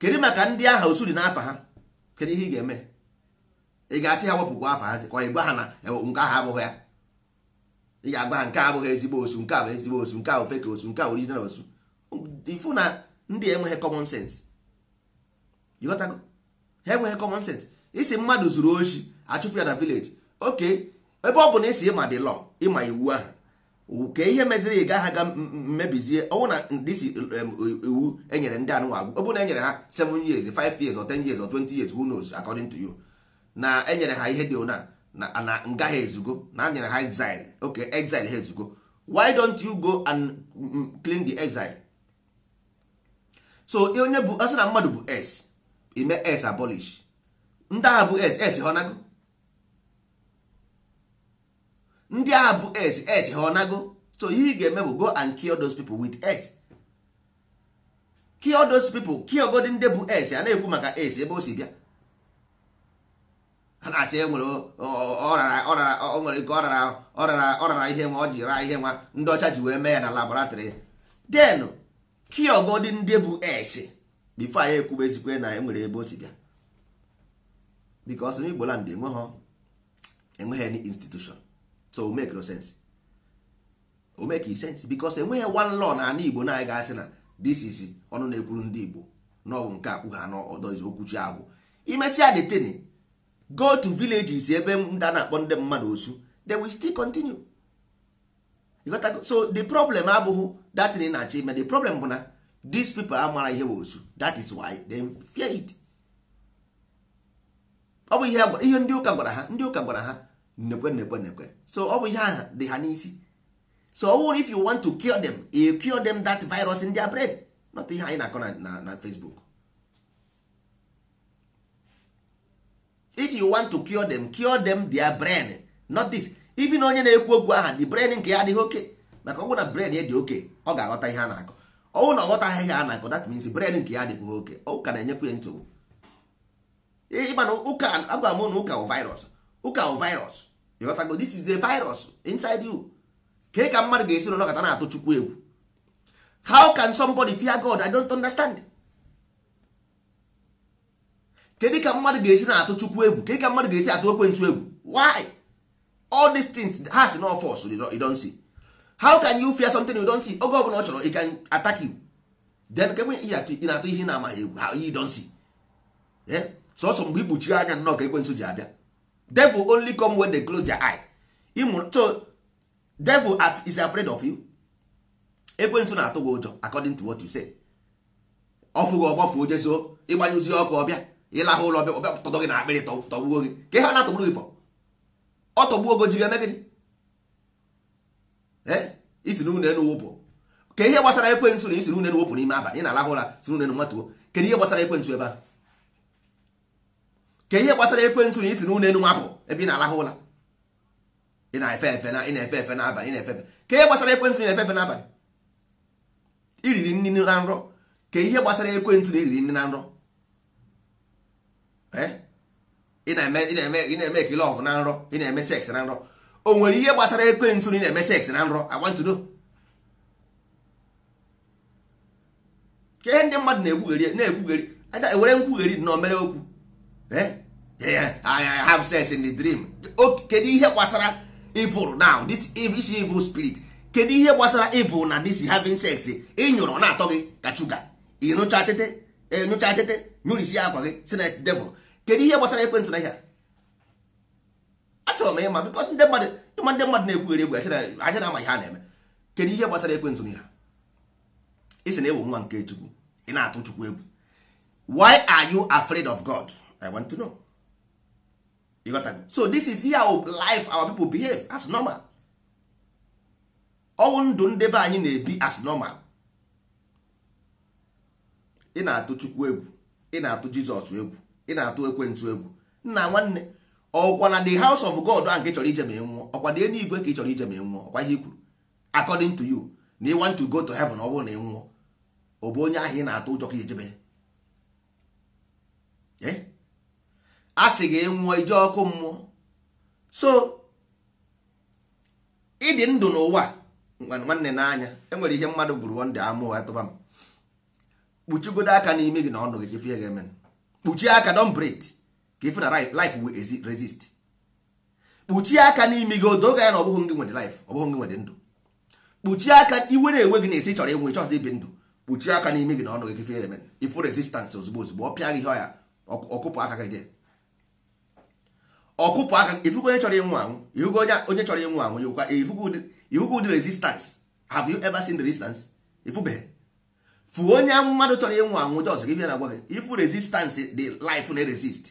kedu maka ndị aha osu dị n'afa ha kedu ihe ị ga-eme ị ga-asị ha wepụkwa afa hazi ka ọ ị ha na e, nke ahụ abụghị ya ị ga-agba ha nke abụghị ezigbo osu nke a bụ ezigbo osu nke a bụ fake osu nke a original osu ifu na ndị enweghị common sense ịghọtago ha enweghị common sense isi mmadụ zuru oshi achụpụ ya na village oke ebe ọ bụ na isi ịma dị law ịma iwu ahụ ka ihe meziri ị gaghị aga mmebizie ọnwụ na disi e, iwu enyere ndị anụ agwụ ọ bụ na enyere ha 7 years 5 years or 10 years or 20 years who knows according to you na enyere ha ihe dị ona na nga ha ezugo na a nyere ha exile ok exile ha ezugo why don't you go and mm, mm, clean the exile so onye bụ asị na mmadụ bụ s ime s abolish ndị agha bụ s s honago ndị agha bụ s s honago so ihe ị ga-eme bụ go and kill those people with s kill those people kill godi ndị bụ s a na-ekwu maka s ebe o si bịa ha na-asị e nwere nwere ọ rara ọrara ọrara ihe nwa ọ ji raa ihe nwa ndị ọcha ji wee mee ya na laboratrị den piogodi ndị bụ s bifo anyị ekwube ezikwe na enwere ebe o si bịa bikos na igbo land enweghị any institution so o make no sense o make sense bikos enweghị one law na ana igbo na anyị ga-asị na this is ọnụ na-ekwuru ndị igbo na ọ bụ nke akwụ ha n'ọdọ izi okwuchi agwụ imesịa detin go to villages ebe ndị a na-akpọ ndị mmadụ osu they will still continue so the problem abụghị datin na-achọ ime the problem bụ na these people amara ihe bụ osu that is why they fear it ọ bụ ihe ndị ụka gwara ha ndị ụka gwara ha nnekwe nnekwe nnekwe so ọ bụ ihe aha dị ha n'isi so ọ if you want to cure them you cure them that virus in their brain not ihe anyị na-akọ na Facebook if you want to cure them cure them their brain not this even onye na-ekwu okwu aha the brain nke ya adịghị oke maka ọ na brain ya dị oke ọ ga-aghọta ihe a na-akọ ọnwụ na ọ ghọtaghị ihe a na-akọ that means brain nke ya adịghị oke ụka na enyekwa ya nsogbu ịmana ụka agwa m na ụka virus ụka wụ virus ịghọtago this is a virus inside you ka ka mmadụ ga-esi n'ọnọkọta na-atụ chukwu egwu how can somebody fear God I don't understand kedu ka mmadụ ga-esi na-atụ chukwu egwu kedu ka mmadụ ga-esi atụ ekwentu egwu why all these things ha si na force you don't see how can you fear something you don't see oge ọbụla ọ chọrọ ị can attack you then ka ị na-atụ ihe na-amaghị egwu ha you don't see eh? sọsọ mgbe ikpuchiri anya nnọọ ka ekwensu ji abịa devil only come when they close their eye ịmụrụ so devil is afraid of you ekwensu na-atụ gị ụjọ according to what you say ọ fụghị ọgbafuo jezuo ịgbanyụzie ọkụ ọbịa ịlahụ ụlọ ọbịa ụtọdọ gị na akpịrị tọgbuo gị ka ihe ọ na-atọgburu gị ọ tọgbuo ogo ji ga isi ụlọ elu wụpụ ka ihe gbasara ekwentị na isi wụpụ n'ime abalị ị na-alahụ ụra n'ụlọ elu nwatuo kedu ihe gbasara ekwentị ebe ihe gbasara ekwentị na isi n'ụlọ nwapụ ebe ị na-alahụ ị na-efe efe na ị na-efe efe n'abalị na-efe efe ka ihe gbasara ekwentị na-efe efe na nrọ ka ihe gbasara ekwentị na iriri nri na nrọ Eh? ị na-eme ekele ọf na nrọ ị na-eme seks na nrọ o nwere ihe gbasara ekwentị na ị na-eme seks na nrọ agbantudo ka ndị mmadụ na egwugheri na-ekwugheri ewere e nkwugheri na omere okwu eh? I have sex in the dream kedu ihe gbasara evil now this evil spirit kedu ihe gbasara evil na this having sex ịnyụrụ na-atọ gị ka chuga ịnụcha tete ịnụcha tete nyụrisi akwa gị si na devil kedu ihe gbasara ekwentị na ihe achọrọ m ịma bikọs ndị mmadụ ịma ndị mmadụ na-ekwugheri egwu aja na ama ihe a na-eme kedu ihe gbasara ekwentị na ihe isi na ewu nwa nke chukwu ị na-atụ chukwu egwu why are you afraid of god i want to know you got that? so this is how life our people behave as normal ọnwụ ndụ ndị be anyị na-ebi as normal ị na-atụ chukwu egwu ị na-atụ jizọs egwu ị na-atụ ekwentụ egwu nna nwanne ọkwa na the house of god a nke chọrọ ije ma nwụọ ọkwa dị elu igwe ka ị chọrọ ije ma nwụọ ọkwa ihe kwuru according to you na ị want to go to heaven ọ bụrụ na ị nwụọ ọ bụ onye ahụ ị na-atụ ụjọ ka ijebe e? a sị gị nwụọ ije ọkụ mmụọ so ịdị ndụ n'ụwa nwanne n'anya enwere ihe mmadụ gburu wonde amụọ atụba m kpuchigodo aka n'ime gị na ọnụ gị chepie ga kpuchie aka don breed ka ife na life will resist kpuchie aka n'ime gị odo ya na ọ bụghị gị nwere life ọ bụghị gị nwere ndụ kpuchie aka iwe na-enwe gị na-esi chọrọ ịnwe ịchọzọ ibi ndụ kpuchie aka n'ime gị na ọnụ gị kife eme ifu resistance ozugbo ozugbo ọ pịa gị ihe ọya ọkụpụ aka gị dị ọkụpụ aka ifugo onye chọrọ ịnwụ anwụ ifugo onye chọrọ ịnwụ anwụ ifugo ụdị resistance have you ever seen the resistance ifubeghị Fu onye mmadụ chọrọ ịnwụ anwụ jọs gị bịa na agwa gị ifu resistance dị life na resist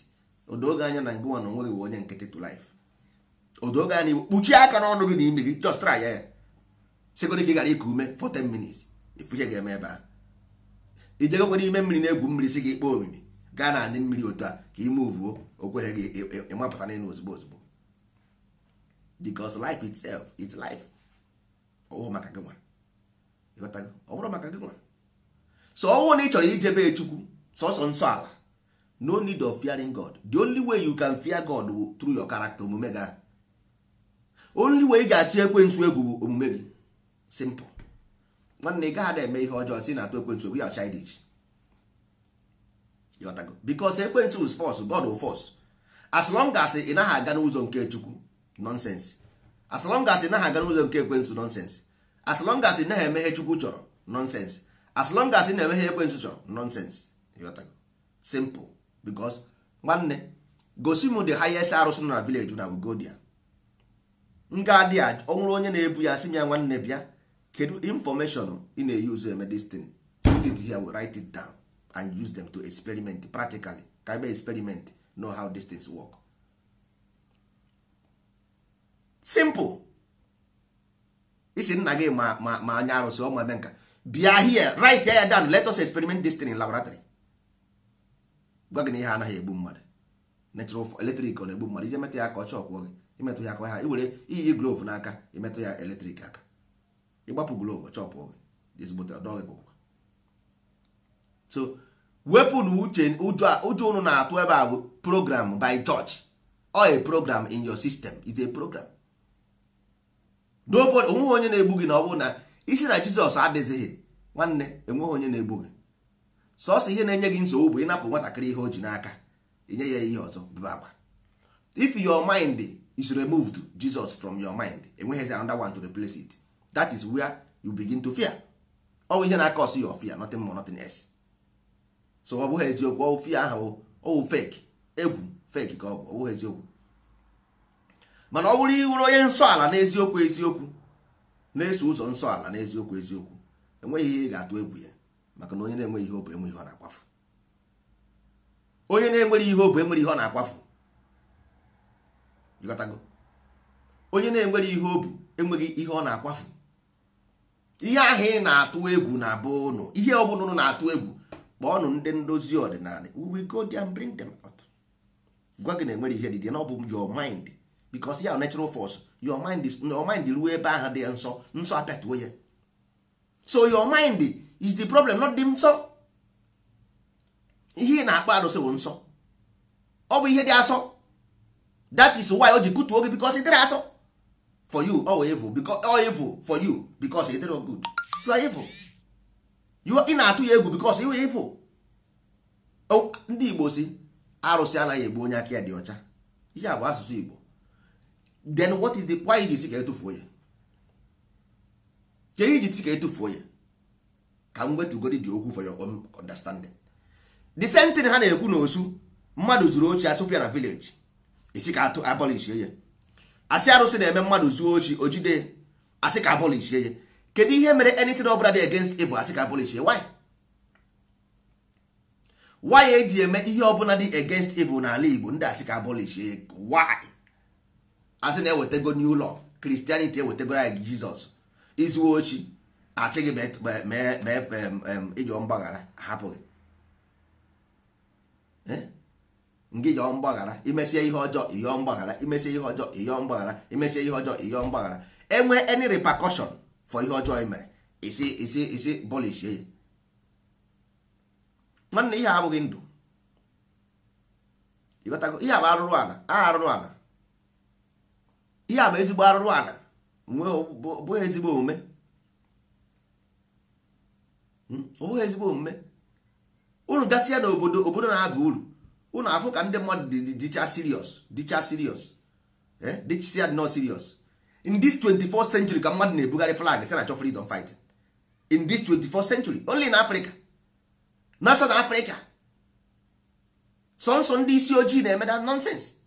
odoge anya na ngụwa na onwere iwe onye nkịtị to life odoge anya iwu kpuchie aka n'ọnụ gị na imi gị just try ya sekọrị ka ị gara ịkụ ume for 10 minutes ifu ihe ga-eme ebe a ijegokwe n'ime mmiri na-egwu mmiri si gị kpọọ omimi gaa na anị mmiri otu a ka ime uvuo okweghị gị ịmapụta n'elu ozugbo ozugbo because life itself it's life ọ bụrụ maka gị nwa ọ bụrụ maka gị nwa so ọnwụ na ị chọrọ ijebe chukwu sọsọ nsọ ala no need of fearing god the only way you can fear god through your character omume ga only way ị ga-achị ekwentị egwu bụ omume gị simple nwanne ị gaghị eme ihe ọjọọ si na atụ ekwentị egwu ya chidish yọtago bikos ekwentị wụ fos god wụ fos as long as ị naghị aga n'ụzọ nke chukwu nonsens as long as ị naghị aga n'ụzọ nke ekwentị nonsense as long as ị naghị emeghe chukwu chọrọ nonsens as long as ị na-eme ha ekwensu chọrọ nonsense simple because nwanne gosi m the highest arụsị nọ na village na godia nga dị a ọ onye na-ebu ya sị m ya nwanne bịa kedu information ị na-eyuzu eme this thing put it here write it down and use them to experiment practically ka ebe experiment know how these things work simple isi nna gị ma ma anya arụsị ọma eme nka bịa here right ya down let us experiment this thing in laboratory gwa gị na ihe anaghị egbu mmadụ natural eletrik ọ na-egbu mmadụ ije metụ ya aka ọcha ọkwụọ gị imetụ ya aka ha iwere iyi glove n'aka imetụ ya eletrik aka ịgbapụ glove ọchọpụ gị so wepụ na uche ụjọ unu na-atụ ebe a program by church or a program in your system is a program nobody onweghị onye na-egbu gị na ọ bụrụ na isi na jizọs adịghị nwanne enweghị onye na-egbu gị sọsọ ihe na-enye gị nsogbu bụ ịnapụ nwatakịrị ihe o ji n'aka inye ya ihe ọzọ bụba akwa if your mind is removed jesus from your mind enweghịzi another one to replace it that is where you begin to fear ọ bụ ihe na-aka ọsị your fear nothing more nothing else so ọ bụghị eziokwu ọwụ fear ahụ ọwụ fake egwu fake ka ọ bụ ọ bụghị eziokwu mana ọ bụrụ ịwụrụ onye nsọ ala na eziokwu na-eso ụzọ nsọ ala na eziokwu eziokwu enweghị ihe ị ga-atụ egwu ya maka na onye na-enweghị ihe obu enweghị ihe ọ na-akwafu onye na-enweghị ihe obu enweghị ihe ọ na-akwafu onye na-enweghị ihe obu enweghị ihe ọ na-akwafu ihe ahụ ị na-atụ egwu na abụ ụnụ ihe ọ ọbụla ụnụ na-atụ egwu kpọọnụ ndị ndozi ọdịnala we go there and bring gwa gị na enweghị ihe dị na ọ bụ jọ mind because ya natural force your mind is your mind ruo ebe ahụ dị nsọ nsọ apịatuo ya so your mind is the problem not the nsọ ihe ị na-akpọ arụsị bụ nsọ ọ bụ ihe dị asọ that is why o ji kutuo gị because ị dịrị asọ for you ọ evil because ọ evil for you because ị dịrị good you are evil you ị na-atụ ya egwu because you are evil ndị Igbo si arụsị anaghị egbu onye aka ya dị ọcha ihe a bụ asụsụ Igbo then what is the why iji si ka etufuo ya ka iji si ka etufuo ya ka m wetugodi di okwu for your own understanding the same thing ha na-ekwu na osu mmadụ zuru ochi asụpịa na village esi ka atụ abolishie ya asị arụsị na-eme mmadụ zuo ochi ojide asị ka abolishie ya kedu ihe mere anything ọbụla dị against evil asị ka abolishie why why eji eme ihe ọbụla dị against evil n'ala Igbo ndị asị ka abolishie why asị na ewetego new law Christianity ewetego anyị Jizọs izuwe ochi asị gị mee ịjọ mgbaghara hapụghị ngị ijọ mgbaghara imesie ihe ọjọọ ịyọọ mgbaghara imesie ihe ọjọọ ịyọọ mgbaghara imesie ihe ọjọọ ịyọọ mgbaghara enwe any repercussion for ihe ọjọọ ị mere isi isi isi bọlishie ya nwanne ihe abụghị ndụ ihe abụ arụrụ ala a arụrụ ala ihe a bụ ezigbo arụrụ ala bụghị ezigbo omume hmm? ọ bụghị ezigbo omume unu gasịa na obodo obodo na aga uru unu afụ ka ndị mmadụ dị dịcha serious dịcha serious eh? dịchisia dị nọ serious in this 24th century ka mmadụ na-ebugharị flag si na chọ freedom fight in this 24th century only in Africa na South Africa sọnsọ ndị isi ojii na-eme nonsense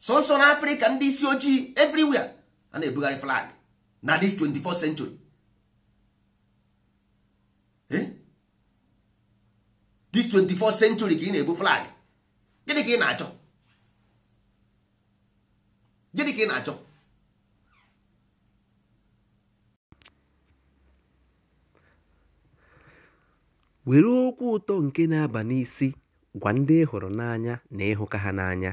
sọnsọ na afrịka ndị isi ojii everywhere a na-ebugharị flag na this 24th century eh? this 24th century ka ị na-ebu flag gịnị ka ị na-achọ gịnị ka ị na-achọ were okwu ụtọ nke na-aba n'isi gwa ndị ị hụrụ n'anya na ịhụka ha n'anya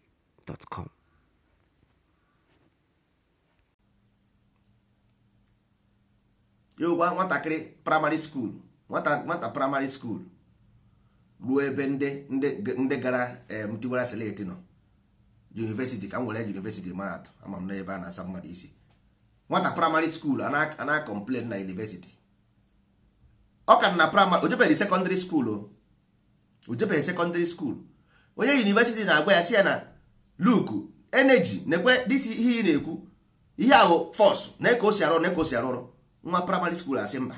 gmail.com. ya nwatakịrị praịmarị skuul nwata nwata praịmarị skuul ruo ebe ndị ndị gara ntiwara eh, seleti nọ yunivesiti ka m were yunivesiti mahadum ama m n'ebe a na-asa mmadụ isi nwata praịmarị skuul a na-akọmplen na yunivesiti ọ ka na praịmarị ojebeghị sekọndịrị skuul o ojebeghị sekọndịrị skuul onye yunivesiti na-agwa ya si ya na luke energy nekwe dis ihe ị na-ekwu ihe ahụ fọs na ka o si arụ na ka o si arụrụ ọrụ nwa praịmarị skuul asị mba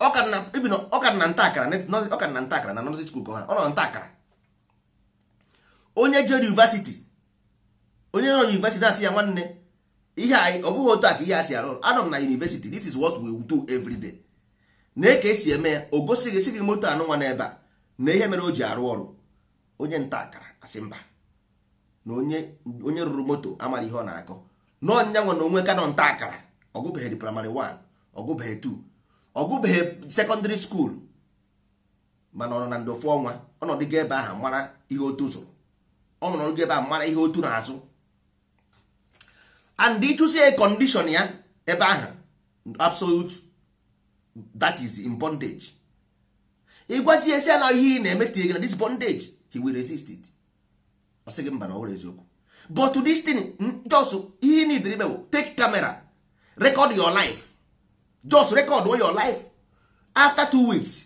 ọka na nta akara na nta akara na nọzi skuul ka ọ nọ nta akara onye jere yunivasiti onye nọ yunivesiti asị ya nwanne ihe anyị ọ bụghị otu a ka ihe a si arụ anọ m na yunivesiti this is what we do every day na ka esi eme ya o gosighị esighị moto anụ nwa n'ebe a na ihe mere o ji arụ ọrụ onye nta akara asị mba na onye rụrụ moto amara ihe ọ na-akọ n'ọnyanwụ na onwe kanọ nta akara ọgụbeghị praịmarị 1 ọgụbeghị 2 ọgụbeghị sekọndịrị skuul mana ọ nọ na ndofu ọnwa ọnọdụ ọnọdụgo ebe ahụ mara ihe otu zụrụ ọ nọdụgo ebe ahụ mara ihe otu na-azụ and ịchụsi a ya ebe ahụ absolute that is in bondage ịgwazi esi na ihe ị na-emetinye gị na dis bondage he will resist it asị gị mba na ọhụrụ eziokwu but to this thing just ihe need ime bụ take camera record your life just record all your life after two weeks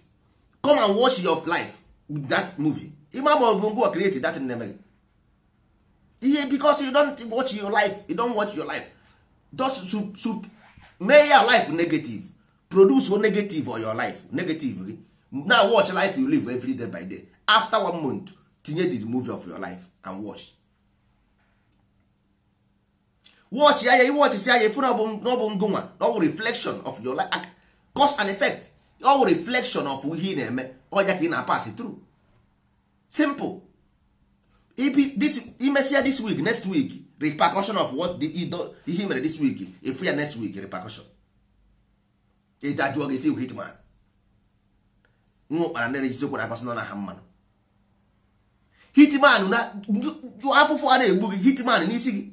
come and watch your life with that movie ịma ma ọ bụ ngwa create that nne gị ihe because you don't watch your life you don't watch your life just to sup make your life negative produce one negative on your life negative gị now watch life you live every day by day after one month tinye this movie of your life and watch watch ya ya watch si anya ifu na ọ bụ ngụnwa na ọ bụ reflection of your life cause and effect ọ bụ reflection of ihe ị na-eme ọja ka ị na-apas through simple this imesia this week next week repercussion of what the ihe mere this week ifu ya next week repercussion ịdajụọ gị si hitman nwa ụkpara na-erejiziokwu na akpasị nọ na ha mmanụ hitman na afụfụ a na-egbu gị hitman n'isi gị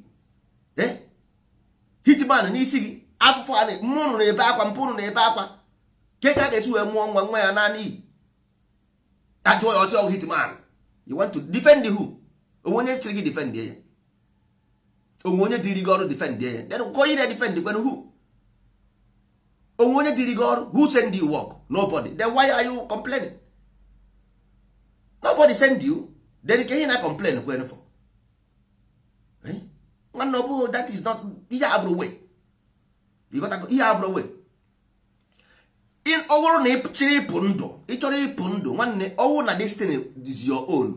eh? hitman n'isi gị afụfụ a mmụnụ na-ebe akwa mpụrụ na-ebe akwa nke ka a ga-esi wee mụọ nwa nwa ya naanị iyi ajụọ ya oh, hitman you want to defend who onwe onye chịrị gị defend ya onwe onye dịrị gị ọrụ defend ya then go na defend kwen who onwe onye dịrị gị ọrụ who send you work nobody then why are you complaining nobody send you then ka ihe na complain kwen for nwanne ọ bụghị that is not ihe abụrụ way ịghọtago ihe abụrụ way ọ bụrụ na ị chọrọ ịpụ ndụ ị chọrọ ịpụ ndụ nwanne ọnwụ na destiny is your own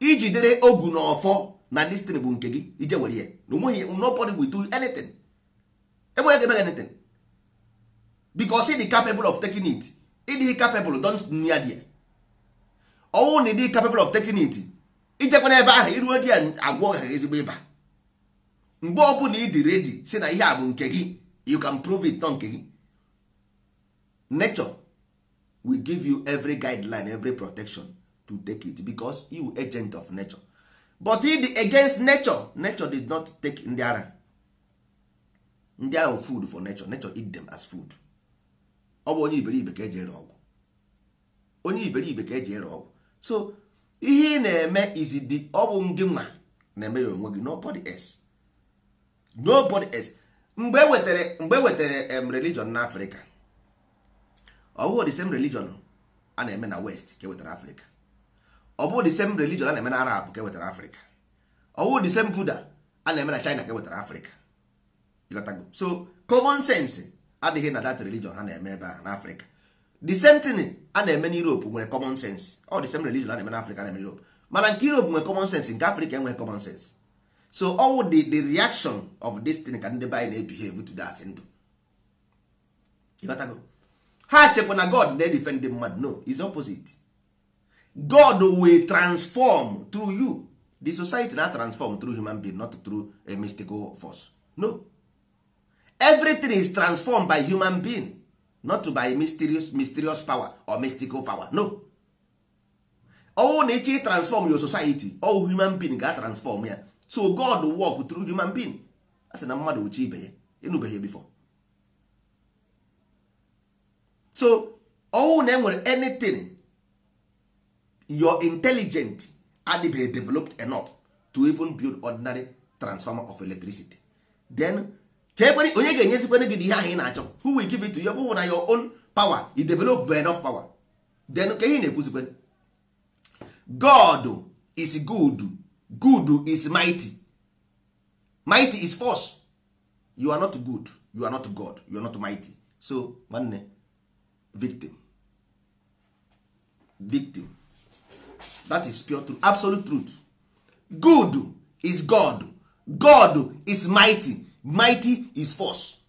ijidere ogu na ọfọ na destiny bụ nke gị ije were ya na onweghị nobody will do anything enweghị ga-emeghe anything because ị dị capable of taking it ị dịghị capable don't near there ọnwụ na ị capable of taking it ijekwa ebe ahụ iruo di ya agwọ ha ezigbo ịba mgbe ọbụla ị dị redi si na ihe a bụ nke gị you can prove it nọ nke gị nature will give you every guideline every protection to take it because you agent of nature but if the against nature nature did not take ndị ara ndị ara food for nature nature eat them as food ọ bụ onye iberibe ka eji ere ọgwụ onye iberibe ka eji ere ọgwụ so ihe ị na-eme izidi ọ bụ gị nwa na-eme ya onwe gị nobody else nobody else mgbe e wetara mgbe ewetere em religion na afrịka ọ bụghị the same religion a na-eme na west ka e wetara afrịka ọ bụghị the same religion a na-eme na arab ka e wetara afrịka ọ bụghị the same buddha a na-eme na china ka wetara afrịka so common sense adịghị na that religion ha na-eme ebe a na afrịka the same thing a na-eme n'Europe nwere common sense ọ the same religion a na-eme n'Africa na Europe mana nke Europe nwere common sense nke Africa enweghị common sense so all the the reaction of this thing ka ndị be anyị na-ebehave to that ndụ ịghọtago ha chekwa na God na-edefend the mmadụ no is opposite God will transform through you the society na transform through human being not through a mystical force no everything is transformed by human being not by mysterious mysterious power or mystical power no Ọwụ na ịchọ transform your society all human being ga transform ya so god work through human being a sị na mmadụ uche ibe ya ịnụbeghị before so ọwụ na enwere anything your intelligent adịbeghị developed enough to even build ordinary transformer of electricity then ka e onye ga-enyezikwana gị ihe ahụ ị na-achọ who will give it to you bụ na your own power you develop enough power then ka ihe na-ekwuzikwa God is good good is mighty mighty is force you are not good you are not God you are not mighty so nwanne victim victim that is pure truth absolute truth good is God God is mighty mighty is force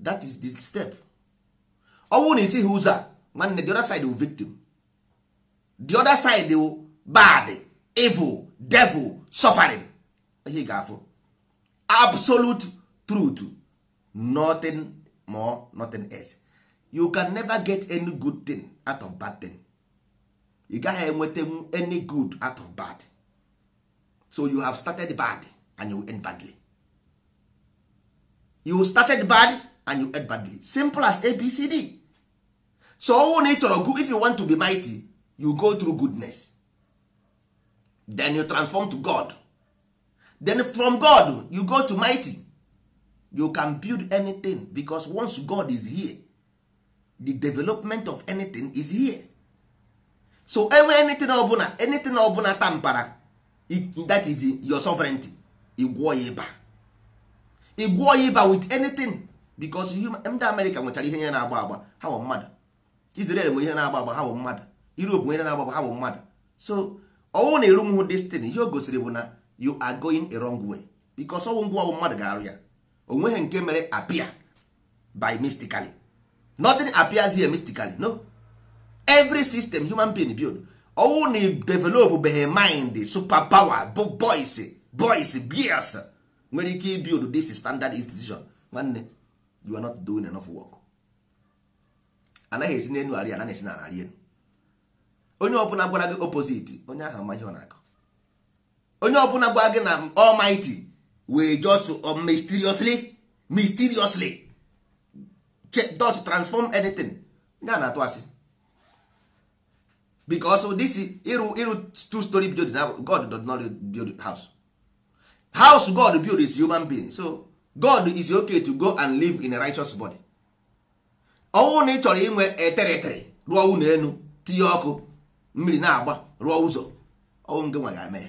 that is the step ọ bụrụ na isighị ụzọ a nwanne the other side will victim the other side will bad evil devil suffering ihe ga-afụ absolute truth nothing more nothing else you can never get any good thing out of bad thing you gaghị enweta any good out of bad so you have started bad and you end badly you started bad and you end badly simple as abcd so ọnwụ na ị chọrọ good if you want to be mighty you go through goodness then you transform to god then from god you go to mighty you can build anything because once god is here the development of anything is here so enwe anything ọbụla anything ọbụla tampara that is your sovereignty igwuo ya ịba ị gwụọ ya ịba with anything because ndị Amerịka nwechara ihe nye na-agba agba ha bụ mmadụ Israel nwere ihe na-agba agba ha bụ mmadụ Europe nwere na-agba agba ha bụ mmadụ so ọnwụ na erunwụ destin ihe o gosiri bụ na you are going a wrong way because ọnwụ ngwa mmadụ ga-arụ ya o nweghị nke mere apia by mystically nothing appears here mystically no every system human being build ọnwụ na develop behe mind super power boys boys beers nwere ike dis this standard institution nwanne you are not doing enough work anaghị esi n'elu arị anaghị esi na arị elu onye ọbụla gwara gị opposite onye ahụ amaghị ọ na-akọ onye ọbụla gwara gị na almighty wee just uh, mysteriously mysteriously dot transform anything ya a na-atụ asị because this ịrụ ịrụ two story building god does not build house house god build is human being so god is okay to go and live in a righteous body ọnwụ na ị chọrọ inwe etere rụọ ụlọ elu tinye ọkụ mmiri na-agba rụọ ụzọ ọnwụ nke nwa ga-eme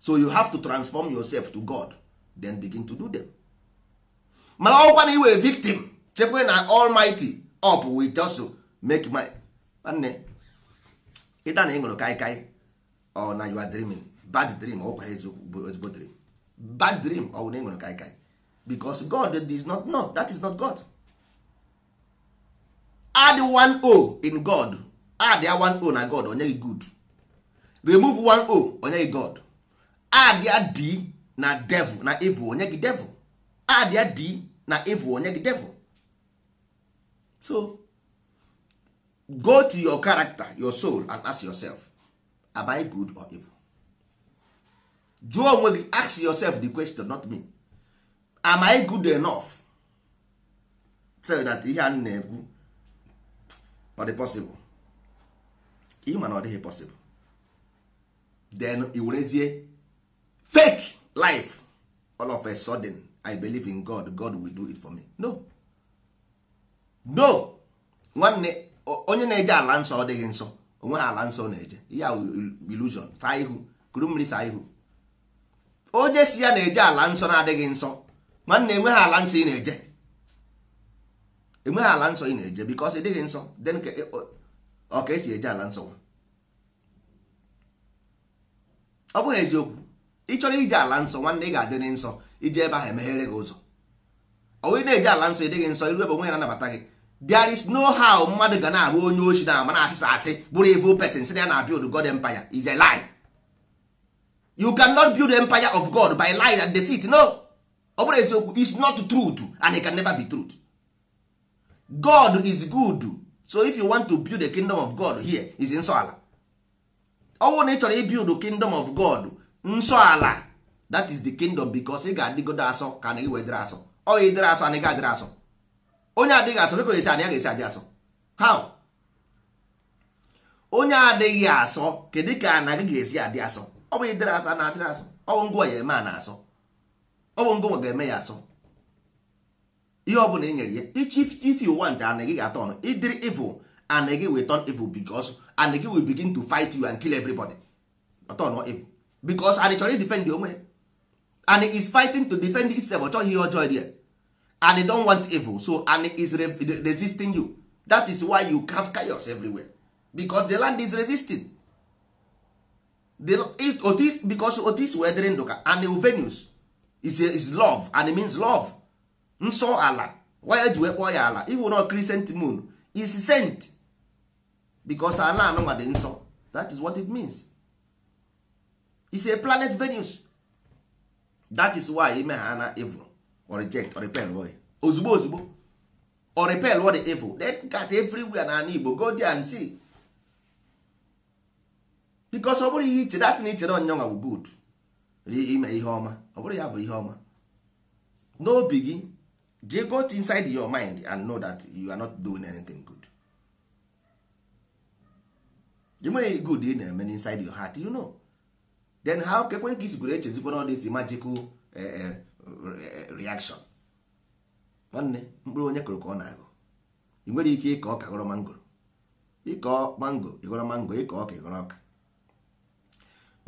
so you have to transform yourself to god then begin to do them mana ọkwa na iwe victim chekwa na almighty up with just make my nwanne ịta na ị ṅụrụ kaikai ọ na you are dreaming bad dream ọkwa ezigbo dream bad dream ọ bụ na ị nwere kaikai because God is not know that is not God add one o in God add ya one o na God onye gị e good remove one o onye gị e God add ya d na devil na evil onye gị e devil add ya d na evil onye gị devil so go to your character your soul and ask yourself am I good or evil jụọ onwe gị ask yourself the question not me am i good enough so that ihe a na-ekwu ọ dị possible ịma na ọ dịghị possible then i werezie fake life all of a sudden i believe in god god will do it for me no no nwanne onye na-eje ala nsọ ọ dịghị nsọ onwe ha ala nsọ na-eje ya illusion saa ihu kuru mmiri saa ihu onye si ya na-eje ala nsọ na-adịghị nsọ mana enweghị ala nsọ ị na-eje enweghị ala nsọ ị na-eje because ị dịghị nsọ then ọ ka esi eje ala nsọ ọ bụghị eziokwu ị chọrọ ije ala nsọ nwanne ị ga-adịrị nsọ ije ebe ahụ emeghere gị ụzọ onye na-eje ala nsọ ịdịghị nsọ iru ebe onwe ya anabata gị there is no how mmadụ ga na-abụ onye ochi na ama na asịsa asị bụrụ evil pesin si na ya na-abịa odu God empire is a lie you cannot build the empire of god by lies and deceit no ọ bụrụ eziokwu is not truth and it can never be truth god is good so if you want to build the kingdom of god here is nsọ ala ọ na ị chọrọ ibuild kingdom of god nsọ ala that is the kingdom because ị ga-adịgodo asọ ka na iwe dịrị asọ ọ ya dịrị asọ anaghị adịrị asọ onye adịghị asọ kekọ esi anaghị esi adị asọ how onye adịghị asọ kedu ka anaghị ga-esi adị asọ ọ bụ ịdịrị asa na adịrị asọ ọ bụ ngwa ya eme a na-asọ ọ bụ ngwa ga-eme ya asọ ihe ọ bụla e nyere ya if you want an gị ga-atọ ọnụ ịdịrị evil an gị will turn evil because an gị will begin to fight you and kill everybody ọtọ nọ evil because an chọrọ defend onwe ya and is fighting to defend himself ọ ihe ọjọọ dị ya and don want evil so and is resisting you that is why you have chaos everywhere because the land is resisting otis because otis wee dịrị ndụ ka an venus is, is love and it means love nsọ ala waya ji wee kpọọ ya ala ịhụ na crescent moon is sent because ala anụnwa dị nsọ that is what it means is a planet venus that is why ime ha na evil or reject or repel ozugbo ozugbo or repel or the evil they got everywhere na ala Igbo go there and see bikos ọ bụrụ ihe ichere atị na ichere ọnyọnwa bụ gud ime ihe ọma ọ bụrụ ya bụ ihe ọma n'obi gị je got inside your mind and know that you are not doing anything good you nwere good ị na-eme inside your heart you know then how kekwe ka isi gwere echezikwara all this magical e, e, reaction nwanne mkpụrụ onye kụrụ ka ọ na-agụ ị nwere ike ịkọ ọka gọrọ mangoro ịkọ mango ịgọrọ mango ịkọ ọka ịgọrọ ọka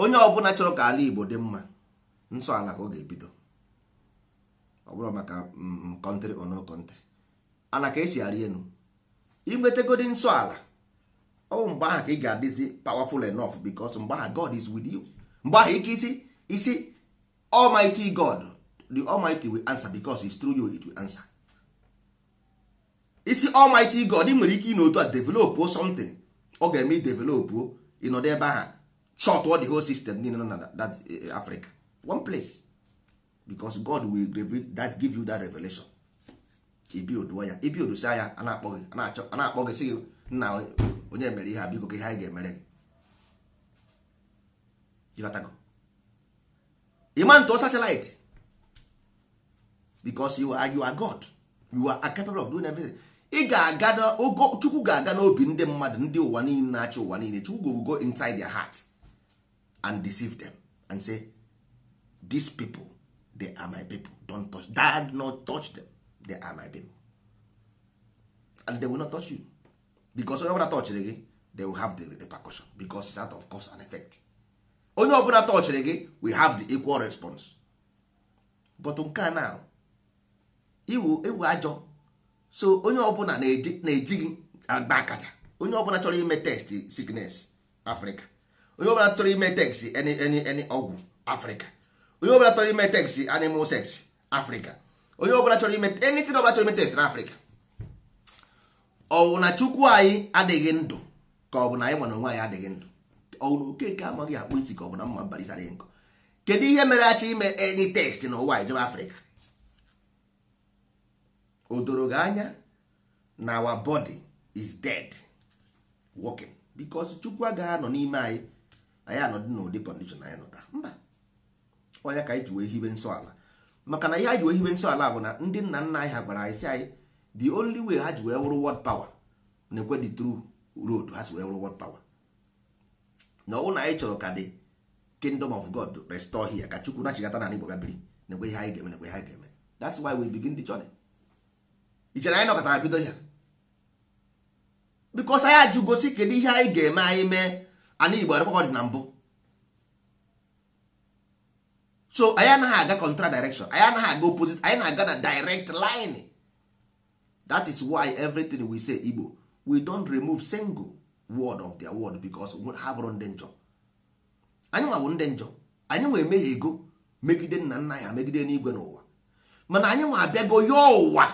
onye ọbụla chọrọ ka ala Igbo dị mma nsọ ala ka ọ ga-ebido ọ bụrụ maka kọntrị mm, ono kọntrị ana ka esi arị enu inwetegodi nsọ ala ọ bụ mgbe ahụ ka ị ga-adịzi powerful enough because mgbe ahụ God is with you mgbe ahụ ike isi isi Almighty God the Almighty will answer because is through you it will answer isi Almighty God ị nwere ike ị na otu a develop something ọ ga-eme i develop ịnọdụ ebe ahụ short all the whole system niile nọ na that eh, eh, africa one place because god will reveal that give you that revelation ibiodụọ ya ibiodosa ya a na-akpọ sị nna onye mere ihe a biko ka ihe anyị ga-emere gị ịma ntụ satellite because you are, you are god you are capable of doing everything ị ga-aga ogo chukwu ga-aga n'obi ndị mmadụ ndị ụwa niile na-achị ụwa niile chukwu go go inside their heart and deceive them and say these people they are my people don't touch dad not touch them they are my people and they will not touch you because onye ọbụla touchiri gị they will have the repercussion because it's out of cause and effect onye ọbụla touchiri gị we have the equal response but nke a now iwu ewu ajọ so onye ọbụla na-eji gị agba akaja onye ọbụla chọrọ ime test sickness Africa onye ọbụla chọrọ ime teksi ọgwụ afrịka onye ọbụla chọrọ ime teksi animal sex afrịka onye ọbụla chọrọ ime enitin ọbụla chọrọ ime teksi na afrịka ọwụ na chukwu anyị adịghị ndụ ka ọ bụ na anyị mana onwe anyị adịghị ndụ ọwụ na okeke amaghị akpụ isi ka ọ bụ na mma barisara nkọ kedu ihe mere achọ ime enyi teksị na ụwa ijebe afrịka o doro gị anya na our body is dead working because chukwu agaghị anọ n'ime anyị anyị anọdị n'ụdị kọndishọn anyị nọ taa mba onye ka anyị ji wee hibe nsọ ala maka na ihe anyị ji wee hibe nsọ ala bụ na ndị nna nna anyị ha gwara anyị si anyị the only way ha ji wee wụrụ word power na-ekwe the true road ha si wee wụrụ word power na ọnwụ na anyị chọrọ ka dị kingdom of god restore here ka chukwu nachigata na igbo gabiri na-ekwe ihe anyị ga-eme na-ekwe ihe anyị ga-eme that's why we begin the journey ichere anyị nọkọtara bido ya because anyị ajụ gosi kedu ihe anyị ga-eme anyị mee ana igbo arụkwakọ dị na mbụ so anyị anaghị aga contra direction anyị anaghị aga opposite anyị na-aga na direct line that is why everything we say igbo we don't remove single word of their word because ha bụrụ ndị njọ anyị nwa bụ ndị njọ anyị nwa emeghe ego megide nna nna ya megide n'igwe n'ụwa mana anyị nwa abịago ya ụwa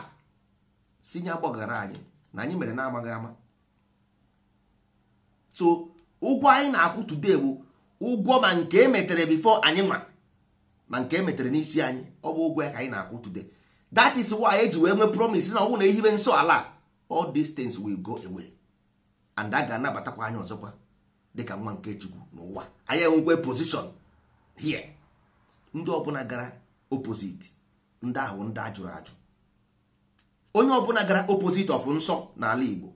si nye gbagara anyị na anyị mere na amaghị ama so ụgwọ anyị na-akwụ today bụ ụgwọ ma nke emetere before anyị nwa ma nke emetere n'isi anyị ọ bụ ụgwọ ya ka anyị na-akwụ today that is why eji wee nwee promise na ọgwụ na ehibe nsọ ala all these things will go away and a ga-anabatakwa anyị ọzọkwa dịka nwa nke chukwu n'ụwa anyị enwekwe position here ndị ọbụla gara opposite ndị ahụ ndị ajụrụ ajụ onye ọbụla gara opposite of nsọ n'ala igbo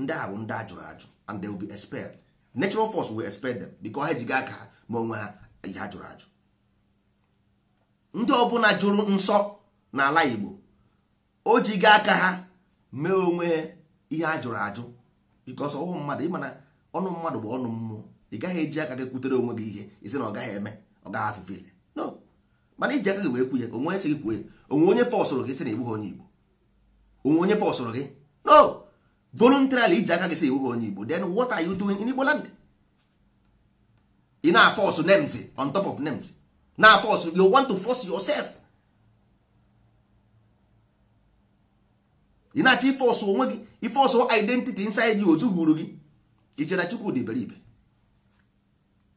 ndị ahụ ndị ajụrụ ajụ and they will be expelled natural force will expel them because ha ejiga aka ha ma onwe ha ihe ajụrụ ajụ ndị ọbụla jụrụ nsọ n'ala Igbo o jiga aka ha mee onwe ihe ajụrụ ajụ because ọhụ mmadụ ịma ọnụ mmadụ bụ ọnụ mmụọ ị gaghị eji aka gị kwutere onwe gị ihe isi na ọ gaghị eme ọ gaghị afụfe ile no mana iji aka gị wee kwu onwe onye si gị kwuo onwe onye fọsụrụ gị si na ịbụghị onye Igbo onwe onye fọsụrụ gị no voluntarily iji aka gị si iwu onye igbo then what are you doing in igbo land ị na force names on top of names na force you want to force yourself ị na-achọ force onwe gị iforce identity inside you ozughuru gị ichere chukwu beribe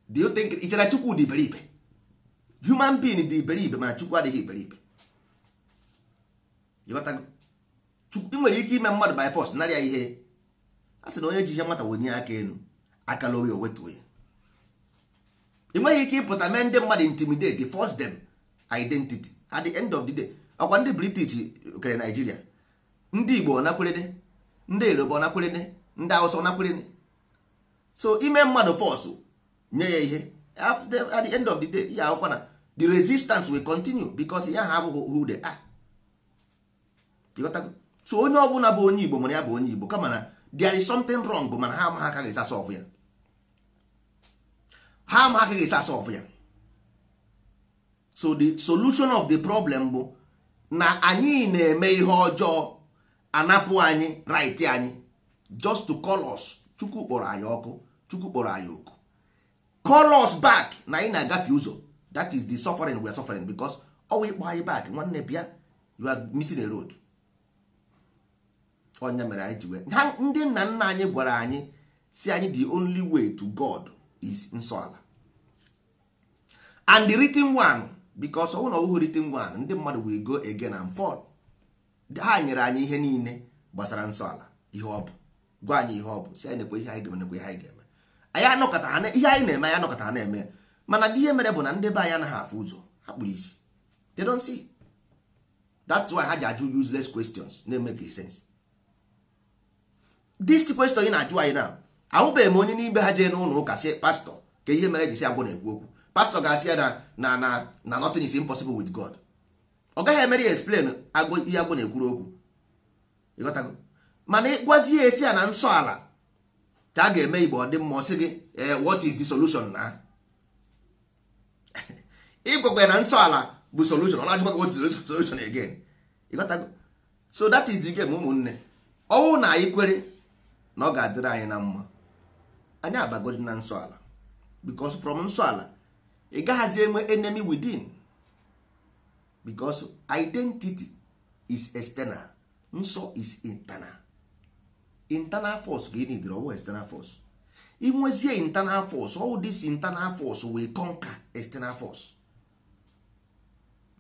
do you human being dị iberibe mana chukwu adịghị beribe ịghọtago ị nwere ike ime mmadụ by force narị ya ihe a sị na onye ji ihe nwata wenye aka elu akala oyi owetuo ya ị nweghị ike ịpụta mee ndị mmadụ intimidate force them identity at the end of the day ọkwa ndị british kere naijiria ndị igbo nakwere ndị yoruba nakwere ndị hausa nakwere so ime mmadụ force nye ya ihe at the end of the day ya akwụkwa na the resistance will continue because ya ha abụghị who they are so onye ọbụla bụ onye igbo mana ya bụ onye igbo kama na there is something wrong bụ mana ha amaghị aka ga ya ha amaghị aka ga ya so the solution of the problem bụ na anyị na-eme ihe ọjọọ anapụ anyị right anyị just to call us chukwu kpọrọ anyị ọkụ chukwu kpọrọ anyị oku call us back na anyị na-agafe ụzọ that is the suffering we are suffering because ọwa ịkpọ anyị back nwanne bịa you are missing a ọnya mere anyị ji wee ha ndị nna nna anyị gwara anyị si anyị the only way to God is nsọ ala and the written one because ọnwụ na ọwụghị written one ndị mmadụ will go again and forth ha nyere anyị ihe niile gbasara nsọ ala ihe ọ bụ gwa anyị ihe ọ bụ si anyị nekwe ihe anyị ga-eme nekwe ihe anyị ga-eme anyị anọkọta ha ihe anyị na-eme anyị anọkọta ha na-eme mana ndị ihe mere bụ na ndị be anyị anaghị afụ ụzọ ha kpụrụ isi they don't see that's why ha ji ajụ useless questions na-emeke sense this question ị na-ajụ anyị na ahụbeghị m onye n'ime ha jee n'ụlọ ụka si pastọ ka ihe mere jisi agwụ na-ekwu okwu pastọ ga-asị ya na na na na nothing is impossible with God ọ gaghị emere ya explain ihe agwụ na-ekwuru okwu ịghọtago mana ịgwazie esi ya na nsọ ala ka a ga-eme igbo ọ dị mma ọ sị gị eh, what is the solution na ịgwakwa na nsọ ala bụ solution ọ na-ajụkwa what is the solution again so that is the game ụmụnne ọnwụ na anyị kwere na ọ ga-adịrị anyị na mma anyị abagodi na nsọ ala from nsọ ala ị gaghazi enwe enemy within because identity is external nsọ is internal internal force ka ị nidere ọwụ external force inwezie internal force all this internal force will conquer external force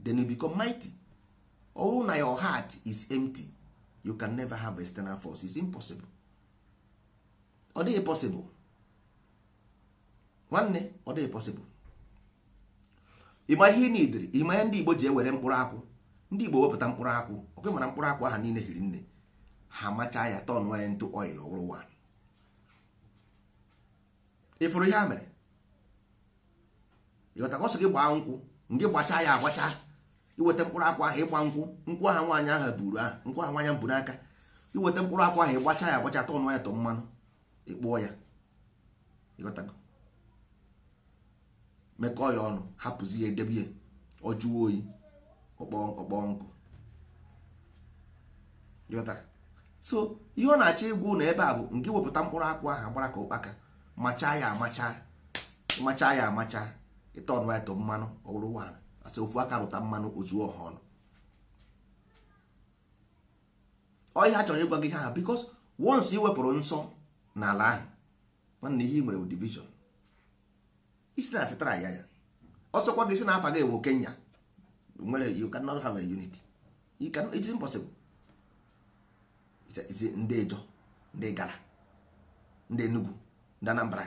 then you become mighty ọwụ na your heart is empty you can never have external force it's impossible ọ dịghị possible nwanne ọ dịghị possible ịma ihe ị nidiri ịma ihe ndị Igbo ji ewere mkpụrụ akwụ ndị Igbo wepụta mkpụrụ akwụ okwe mara mkpụrụ akwụ ahụ niile hiri nne ha macha ya tọn nwanyị ntụ oil ọhụrụ wan ịfụrụ ihe a mere ịghọtakwa ọsọ gị gbaa nkwụ ndị gbacha ya agbacha iweta mkpụrụ akwụ ahụ ịgba nkwụ nkwụ aha nwaanyị ahụ buru ahụ nkwụ ahụ nwaanyị bụ n'aka iweta mkpụrụ akwụ ahụ ịgbacha ya agbacha tọn nwanyị tọ mmanụ ịkpụọ ya ịghọtago mekọọ ya ọnụ hapụzi ya edebe ya oyi ọkpọọ nkụ so ihe ọ na-achọ ịgwụ na ebe a bụ nke wepụta mkpụrụ akwụ ahụ agbara ka ụkpaka machaa ya amacha machaa ya amacha ịta ọnụ ya mmanụ ọ bụrụ wan asị ofu aka rụta mmanụ ozuo ọha ọnụ ọ ihe a chọrọ ịgwa gị ha bikos wons iwepụrụ nsọ n'ala ahụ nwanne ihe nwere division isi na asịtara ya ya ọsọkwa gị si na afa gị ewu Kenya nwere you have a unity you impossible ndị ndị Enugu Anambra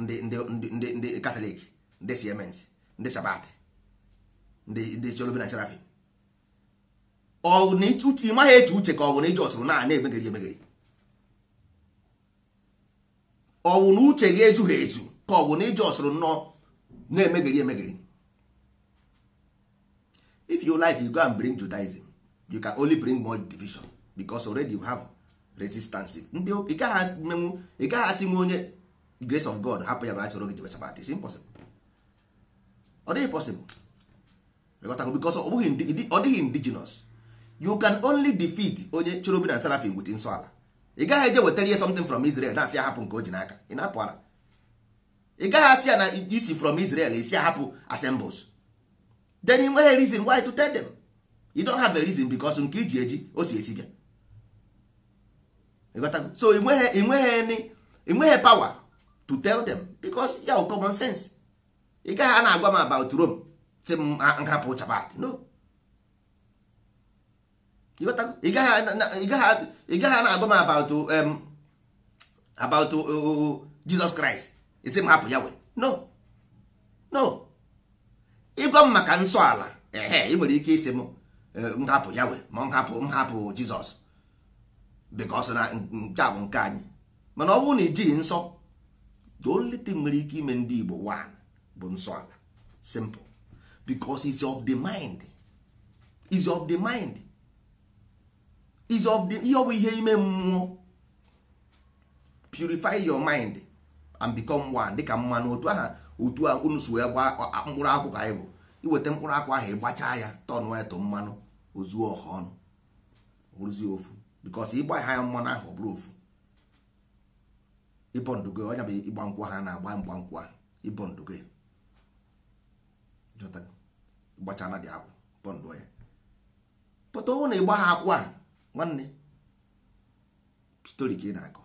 ndị Katọlik ndị Siemens ndị Sabat ndị na na ka na na ọwụ na uche gị ezughị ezu ka ọ bụ na ije ọsụrụ nnọọ na-emegiri emegiri if you like you go and bring judaism you can only bring more division because already you have resistance ndị ị gaghị menwu ị gaghị asị nwe onye grace of god hapụ ya bachọrọ gị jebechabat is impossible ọ dịghị possible because ọ dịghị indigenous you can only defeat onye chọrọ obi na serafim wit nsọ ala ị gaghị eje wetara ihe something from Israel na-asị ahapụ nke o ji n'aka ị na-apụ ara ị gaghị asị ya na isi from Israel isi ahapụ assembles then ị nweghị reason why to tell them you don't have a reason because nke iji eji o si esi bịa so ị nweghị ị nweghị power to tell them because ya common sense ị gaghị a na-agwa m about Rome si m hapụ chabat no ị gaghị gaghị, na-agwa m about about Jizọs Kraịst isi m hapụ ya we no no ịgwa m maka nsọ ala ehe ị nwere ike isi m hapụ ya we ma nhapụ hapụ Jizọs because na nke bụ nke anyị mana ọ bụrụ na ijighị nsọ the only thing nwere ike ime ndị Igbo one bụ nsọ ala simple because is of the mind is of the mind is of the ihe ọ bụ ihe ime mmụọ purify your mind and become one dịka mmanụ otu aha otu unu si ya gba mkpụrụ akwụ ka anyị bụ iweta mkpụrụ akwụ ahụ ịgbachaa ya tọn eto mmanụ ozuo ọha ọnụ rụzie ofu because ịgba ha mmanụ ahụ ọ bụrụ ofu ịbọndugo onye bụ ịgba nkwụ ha na-agba mgba nkwụ ahụ ịbọndugo gbachana dị akwụ bọndụ ya pụta ọnwụ na ịgba ha akwụ a. nwanne Story ka ị na-akọ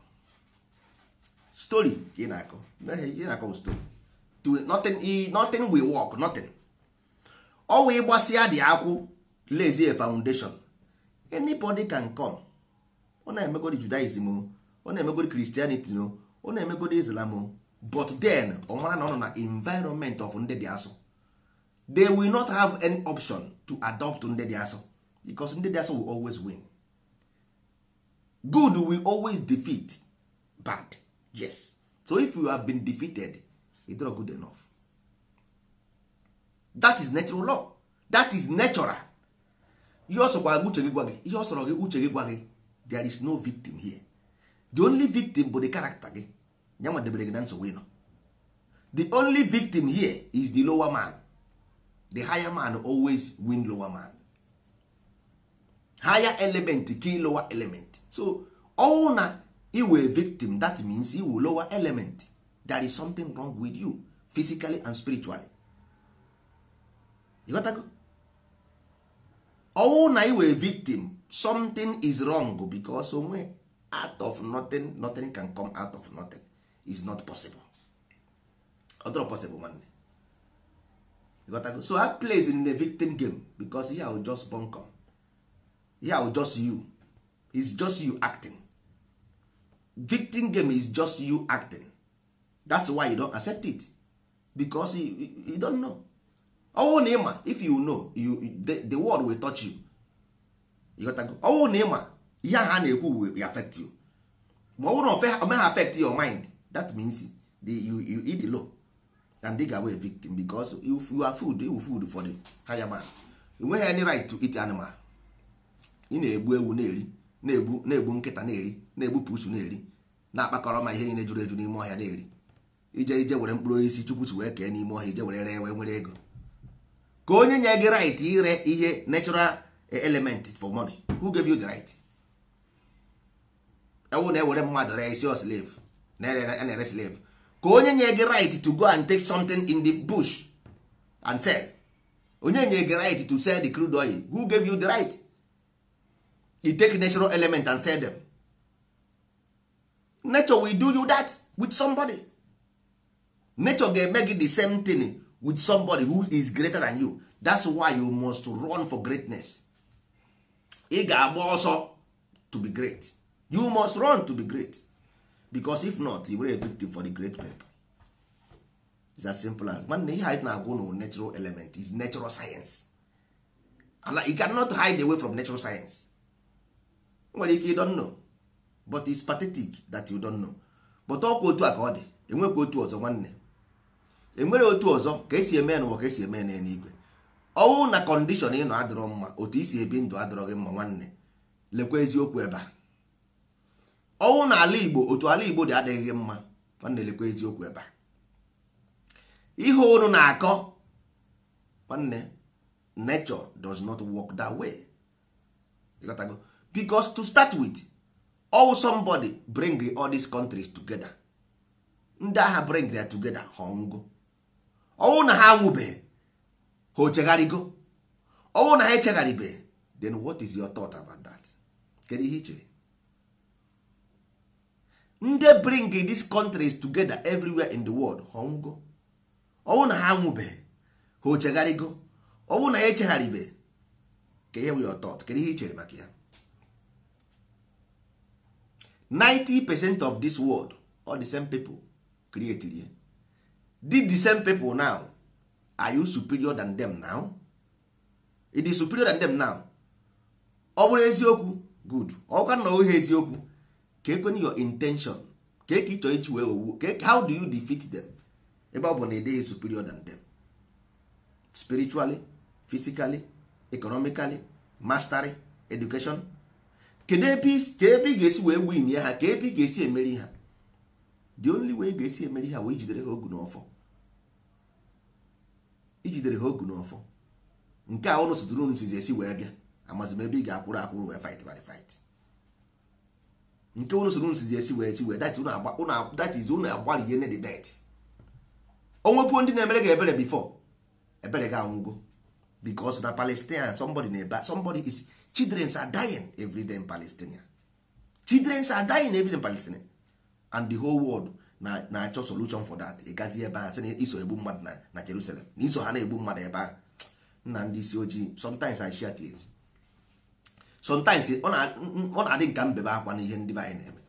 story ka ị na-akọ ị na-akọ stori nothing nothing will work nothing ọwa ịgbasịa dị akwụ lezie foundation anybody can come ọ na-emegodi judaism o ọ na-emegodi christianity o ọ na-emegodi islam o but then ọ mara na ọ nọ na environment of ndị dị asọ they will not have any option to adopt ndị dị asọ because ndị dị asọ will always win good will always defeat bad yes so if you have been defeated it's not good enough that is natural law that is natural ihe ọ sọkwara gị uche gị gwa gị ihe ọ gị uche gị gwa gị there is no victim here the only victim bụ the character gị ya nwa gị na nsogbu ịnọ the only victim here is the lower man the higher man always win lower man higher element kill lower element so ọwụ na iwe victim that means iwu lower element there is something wrong with you physically and spiritually ịghọtago ọwụ na iwe victim something is wrong because onwe oh, out of nothing nothing can come out of nothing is not possible ọdọrọ possible nwanne go so I plays in the victim game because I will just bunkum yeah just you is just you acting victim game is just you acting that's why you don't accept it because you, you, don't know ọnwụ na ịma if you know you, the, the world will touch you ọnwụ na ịma ihe ha na-ekwu will affect you ma ọ bụrụ na ha affect your mind that means the, you, you eat the law and dig away victim because you you are food you food for the higher man you nweghị any right to eat animal ị na-egbu ewu na-eri na-egbu na-egbu nkịta na-eri na-egbu pusu na-eri na-akpakọrọ ma ihe niile juru eju n'ime ọhịa na-eri ije ije were mkpụrụ osisi chukwu si wee kee n'ime ọhịa ije were ree wee nwere ego ka onye nye gị right ire ihe natural element for money who gave you the right ewu na-ewere mmadụ ree isi slave na-ere slave ka onye nye gị right to go and take something in the bush and sell onye nye gị right to sell the crude oil who gave you the right he take natural element and tell them nature will do you that with somebody nature ga-eme gị the same thing with somebody who is greater than you that's why you must run for greatness ị ga-agba ọsọ to be great you must run to be great because if not you were a victim for the great people it's as simple as nwanne ihe anyị na-agwa ụnụ natural element is natural science and you cannot hide away from natural science nwere ike ịdọ nnọ but it's pathetic that you don't know but ọkwa otu a ka ọ dị enwekwa otu ọzọ nwanne enwere otu ọzọ ka esi eme ya ka esi eme ya n'eluigwe ọnwụ na kọndishọn ị nọ adịrọ mma otu isi ebi ndụ adịrọ gị mma nwanne lekwa eziokwu ebe a ọnwụ na ala igbo otu ala igbo dị adịghị gị mma nwanne lekwa eziokwu ebe a ihe unu na-akọ nwanne nature does not work that way because to start with all somebody bring all these countries together ndị agha bring ya together ha ọnwụgo ọnwụ na ha anwụbeghị ha ochegharịgo ọnwụ na ha echegharịbeghị then what is your thought about that kedu ihe nde ndị bring these countries together everywhere in the world ha ọnwụgo ọnwụ na ha anwụbeghị ha ochegharịgo ọnwụ na ha echegharịbeghị ka ihe bụ your thought kedu ihe baki maka ya 90 percent of this world all the same people created ya did the same people now are you superior than them now? It is superior than them now? ọ bụrụ eziokwu good ọkwa na ohe eziokwu ka your intention ka eke ịchọ ichi wee owu how do you defeat them ebe ọ bụ na ịdịghị superior than them spiritually physically economically mastery education kedu ebe ị ga-esi wee win ya ha ka ebe ị ga-esi emeri ha the only way ị ga-esi emeri ha wee ijidere ha ogu n'ọfọ ijidere ha ogu n'ọfọ nke a ụlọ sitụrụ unu sizi esi wee bịa amazi m ebe ị ga-akwụrụ akwụrụ wee fight by fight nke ụlọ soro unu sizi esi wee esi wee that is ụlọ agbalị ihe the debt o nwepuo ndị na-emere gị ebere before ebere gị anwụgo because na Palestine somebody na-ebe somebody is children are dying every day in palestinian children are dying every day in palestinian and the whole world na-achọ solution for that ịgazi ebe a sị iso egbu mmadụ na na jerusalem na iso ha na-egbu mmadụ ebe a nna ndị isi ojii sometimes I share tears sometimes ọ na-adị nka mbebe akwa n'ihe ndị be anyị na-eme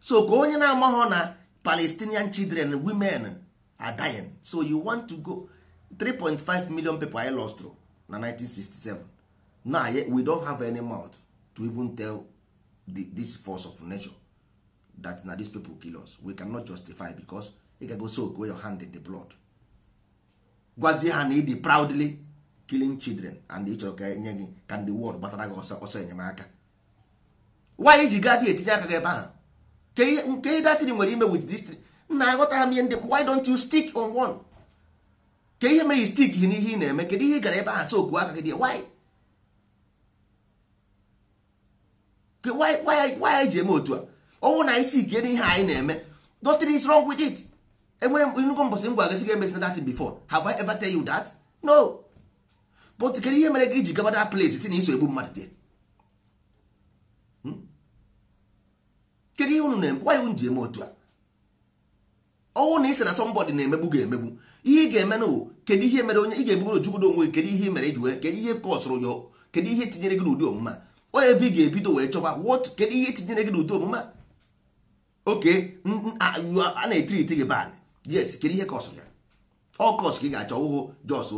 so ka onye na-amaghọ na palestinian children women are dying so you want to go 3.5 million people I lost na 1967 na now we don have any mouth to even tell the, this force of nature that na these people kill us we cannot justify because ị ga-go soak wey your hand in the blood gwazie ha na ịdị proudly killing children and ịchọrọ ka nye gị ka ndị world gbatara gị ọsọ ọsọ enyemaka wanyị ji gadi etinye aka gị ebe ahụ nke ihe datịrị nwere ime with this nna aghọta m ihe ndị why don't you stick on one ka ihe mere i stik gị n'ihe eh, ị na-eme kedu ihe ị gara ebe ahụ sokuo aka gị dị why why anyị ji eme otu a ọnwụ na isi ike n'ihe anyị na-eme nothing is wrong with it enwere nnukwu mbọsị ngwa gasị ga emesina that before have I ever tell you that no but kedu ihe mere gị iji gaba that place si na iso egbu mmadụ dị hmm? kedu ihe unu na-eme why unu ji eme otu a ọnwụ na isi na somebody na-emegbu ga-emegbu ihe ị ga-eme na kedu ihe mere onye ị ga-ebugoro jugodo onwe kedu ihe mere iji wee kedu ihe kọsụrụ ya kedu ihe tinyere gị n'ụdị omume a ọ ebe ga-ebido wee chọba kedu ihe etinyere gị n'ụdị omume oke a na-etiriti gị ban yes kedu ihe kọsụ ya ọ kọsụ ka ị ga-achọ ụhụ jos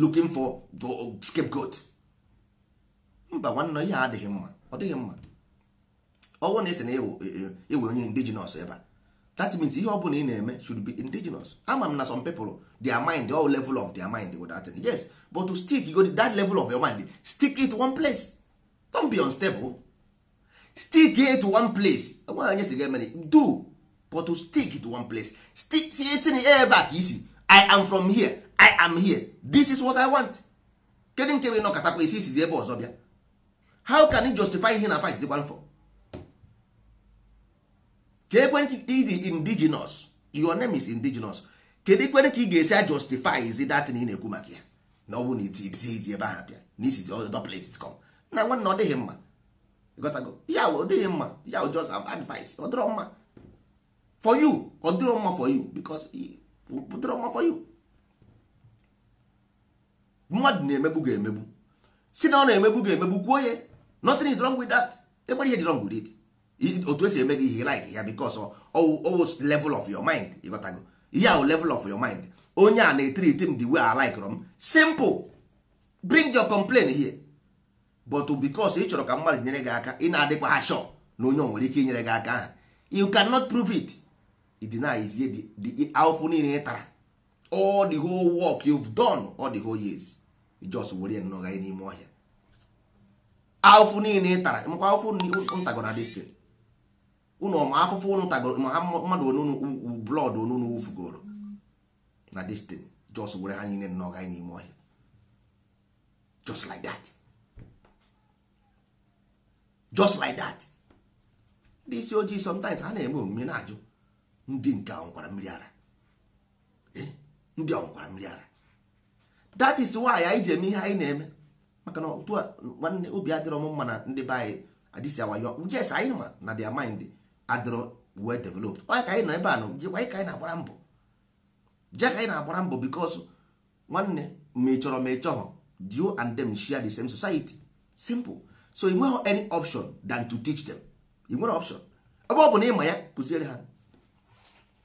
looking for the scapegoat mba nwanne ihe adịghị mma ọ dịghị mma ọnwụ na esi na ewe onye indigenous ebe a that means ihe ọ bụla ị na-eme should be indigenous ama m na some people their mind all level of their mind with that thing yes but to stick you go to that level of your mind stick it one place don't be unstable stick here to one place nwaanyị si get many do but to stick to one place stick tinye in ebe a ka isi i am from here i am here this is what i want kedu nke wee nọkọtakwa isi isizi ebe ọzọ bịa how can you justify ihe na fight zikwa for ka ekwentị indigenous your name is indigenous kedu ikwere ka ị ga-esi justify isi datin ị na-ekwu maka ya na ọ bụ na iti ebe ahụ bịa na isizi other places come na nwanne ọ dịghị mma gotago ya ọ dịghị mma ya ọ just advice ọ dịrọ mma for you ọ dịrọ mma for you because ọ dịrọ mma for you mmadụ na-emegbu ga-emegbu si na ọ na-emegbu ga-emegbu kwuo ya nothing is wrong with that enwere ihe dị wrong with it otu esi eme gị ihe like ya because always level of your mind ịgotago ya o level of your mind onye a na-etriti m the way I like m simple bring your complaint here but because ị chọrọ ka mmadụ nyere gị aka ị na-adịkwa ha shọ na onye nwere ike inyere gị aka ahụ you cannot prove it idenizie the awụfụ niile ị tara all the whole work you've done all the whole years just were nnọga n'ime ọhịa awụfụ niile ị tara makwa awụfụ ntagoro distin ụnụ ma afụfụ ụnụ tagoro ma mmadụ onunu blọd onunu wufugoro na distin just were ha niile nnọga n'ime ọhịa just like that. just like that ndị isi ojii sometimes ha na-eme omume na-ajụ ndị nke ọnkwara mmiri ara eh? ndị ọnkwara mmiri ara that is why anyị ji eme ihe anyị na-eme maka na otu nwanne obi adịrọ m mma na ndị be anyị adịsi awayo yes anyị ma na their mind adịrọ well develop onye ka anyị nọ ebe a na jekwa anyị ka anyị na-agbara mbọ je ka anyị na-agbara mbọ because nwanne ma ị chọrọ ma ị chọhọ you and them share the same society simple so ị nweghị any option than to teach them ị nwere option ebe ọ bụ na ịma ya kụziere ha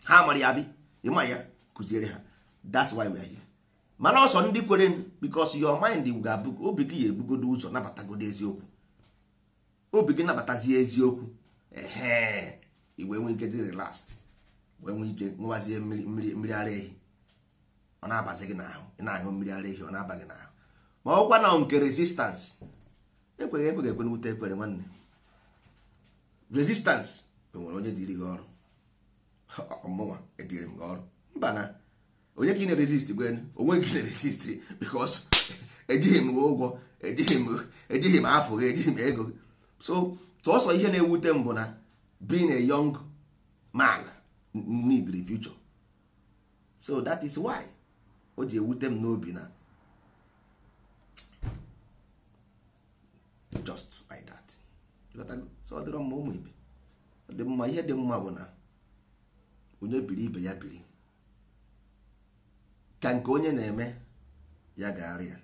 ha mara ya bi ịma ya kụziere ha that's why we are here mana ọsọ ndị kwere because your mind ga-abụ obi gị ya ebugodo ụzọ nabatagodo eziokwu obi gị nabatazie eziokwu ehe wee nwee ike dị relast wee nwee ike ṅụwazie mmiri ara ehi ọ na-abazi gị n'ahụ ị na-aṅụ mmiri ara ehi ọ na-aba gị n'ahụ ma ọ gwa na nke resistance ekweghị ekweghị ekwe n'ute ekwere nwanne resistance enwere onye diri gị ọrụ ọmụnwa ediri m gị ọrụ mba na onye ka ị na-resist gwen onwe gị na-resist bikos ejighị m ụgwọ ejighị m afọ gị ejighị m ego gị so tụọsọ ihe na-ewute m bụ na being a young man need the future so that is why o ji ewute m n'obi na just like that so ọ dịrọ mma ụmụ ibe dị mma ihe dị mma bụ na onye biri ibe ya biri ka nke onye na-eme ya gaara ya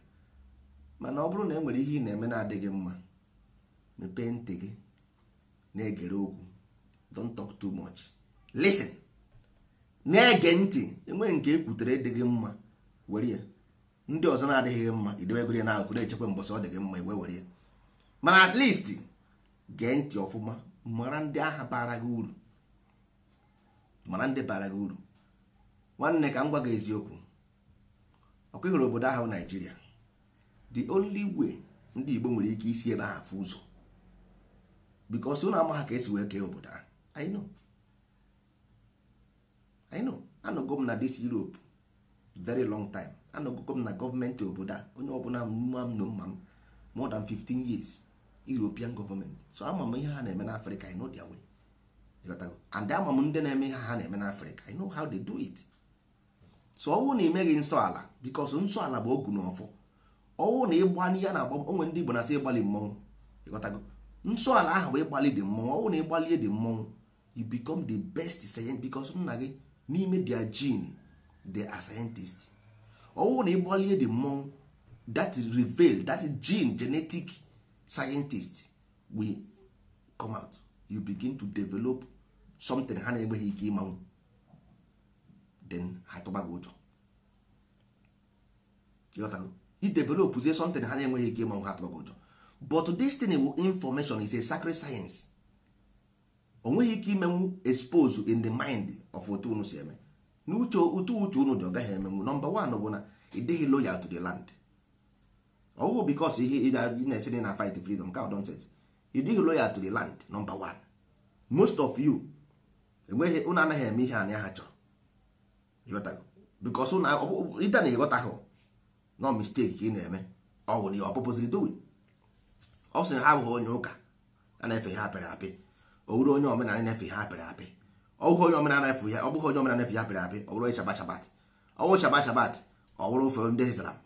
mana ọ bụrụ na e nwere ihe ị na-eme na-adịghị mma mepee ntị gị na-egere okwu don't talk too much listen na-ege ntị enweghị nke ekwutere ịdịghị mma were ya ndị ọzọ na-adịghị gị mma idewegoro ya na-echekwa mbọsị ọ dị mma iwe were ya mana at least gee ntị ọfụma mara ndị agha bara gị uru mara ndị bara gị uru nwanne ka m gwa gị eziokwu ọkụ ịhụrụ obodo ahụ naijiria the only way ndị Igbo nwere ike isi ebe ahụ afụ ụzọ bikos ụnụ ama ha ka esi wee kee obodo ahụ I know I know anọgo m na dis Europe very long time anọgogo m na gọọmenti obodo a onye ọbụla mma m na mma m more than 15 years european government so ama m ihe ha na-eme n'afrịka i know their way and ama m ndị na-eme ihe ha na-eme n'afrịka i know how they do it so ọwụ na imeghị nsọ ala bikos nsọ ala bụ ogu na ọfụ ọwụ na ịgba n'ihe na agba onwe ndị igbo na-asị ịgbalị mmọnwụ ịghọtago nsọ ala ahụ bụ ịgbalị dị mmọnwụ ọwụ na ịgbalie dị mmọnwụ you become the best scientist bikos nna gị n'ime their gene they are scientist ọwụ na ịgbalie dị mmọnwụ that reveal that gene genetic scientist we come out you begin to develop something ha na-enweghị ike ịmanwụ then na-enweghị ike ịmanwụ ha tụbago ụjọ but destiny information is a sacred science o ike imenwu expose in the mind of otu unu si eme n'uche otu uche unu dị ọ gaghị emenwu nọmba one bụ na ị dịghị loyal to the land ọwụ bikos ihe ị na esi na fight freedom ka nonsense you dịghị loyal to the land number one most of you enweghị ụnụ anaghị eme ihe anya ha chọrọ bikos ite na ịghọtaghị no mistake ka ị na-eme ọwụ na ọpụpụziri dowi ọ sị ha abụghị onye ụka a na-efe ha apịrị apị owuru onye omenala na-efe ihe apịrị apị ọbụghị onye omenala efe ya ọbụghị onye omenala efe ya apịrị apị ọwụrụ onye shabat shabat ọwụ shabat shabat ọwụrụ ofe ndị islam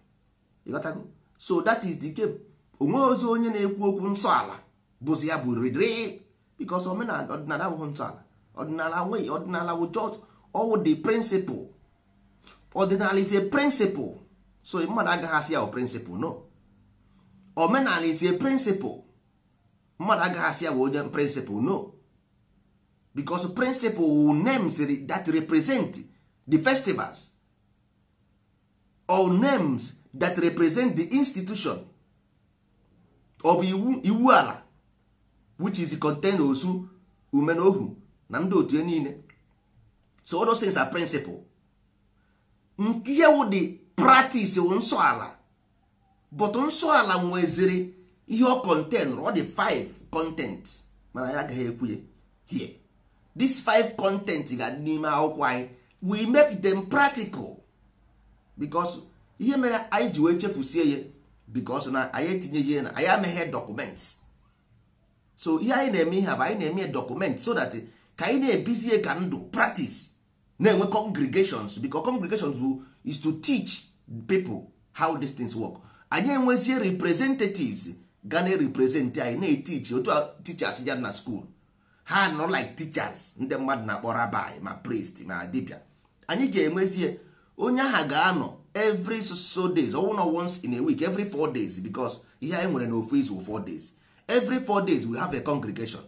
ịghọtago so that is the game onwe ozi onye na-ekwu okwu nsọ ala bụzi ya bụ riri bikos omenala ọdịnala abụghị nsọ ala ọdịnala nweghị ọdịnala wụ just all the principle ọdịnala is a so mmadụ agaghị asị ya principle no omenala is a principle mmadụ agaghị asị ya onye principle no bicos principle wụ names that represent the festivals or names that represent the institution of iwu ala which is content osu ume na ohu na ndị otu niile so all those things are principle nke ihe the practice wụ nsọ ala but nsọ ala nweziri ihe ọ contain ọ dị five content mana ya agaghị ekwu here this five content ga-adị n'ime akwụkwọ anyị we make them practical because ihe mere anyị ji wee chefusie ya bikos na anyị etinyeghị ya na anyị ameghe dọkụmentị so ihe anyị na-eme ihe bụ anyị na-eme dọkụmentị so that ka anyị na-ebizie ka ndụ practice na-enwe congregations biko congregations bụ is to teach people how these things work anyị enwezie representatives ga na-represent anyị na-etichi otu tichers ya na school ha nọ like teachers ndị mmadụ na-akpọ rabbi ma priest ma dibia anyị ga-enwezie onye ahụ ga-anọ every so days ọnwụ na once in a week every four days because ihe anyị nwere n'ofu izu four days every four days we have a congregation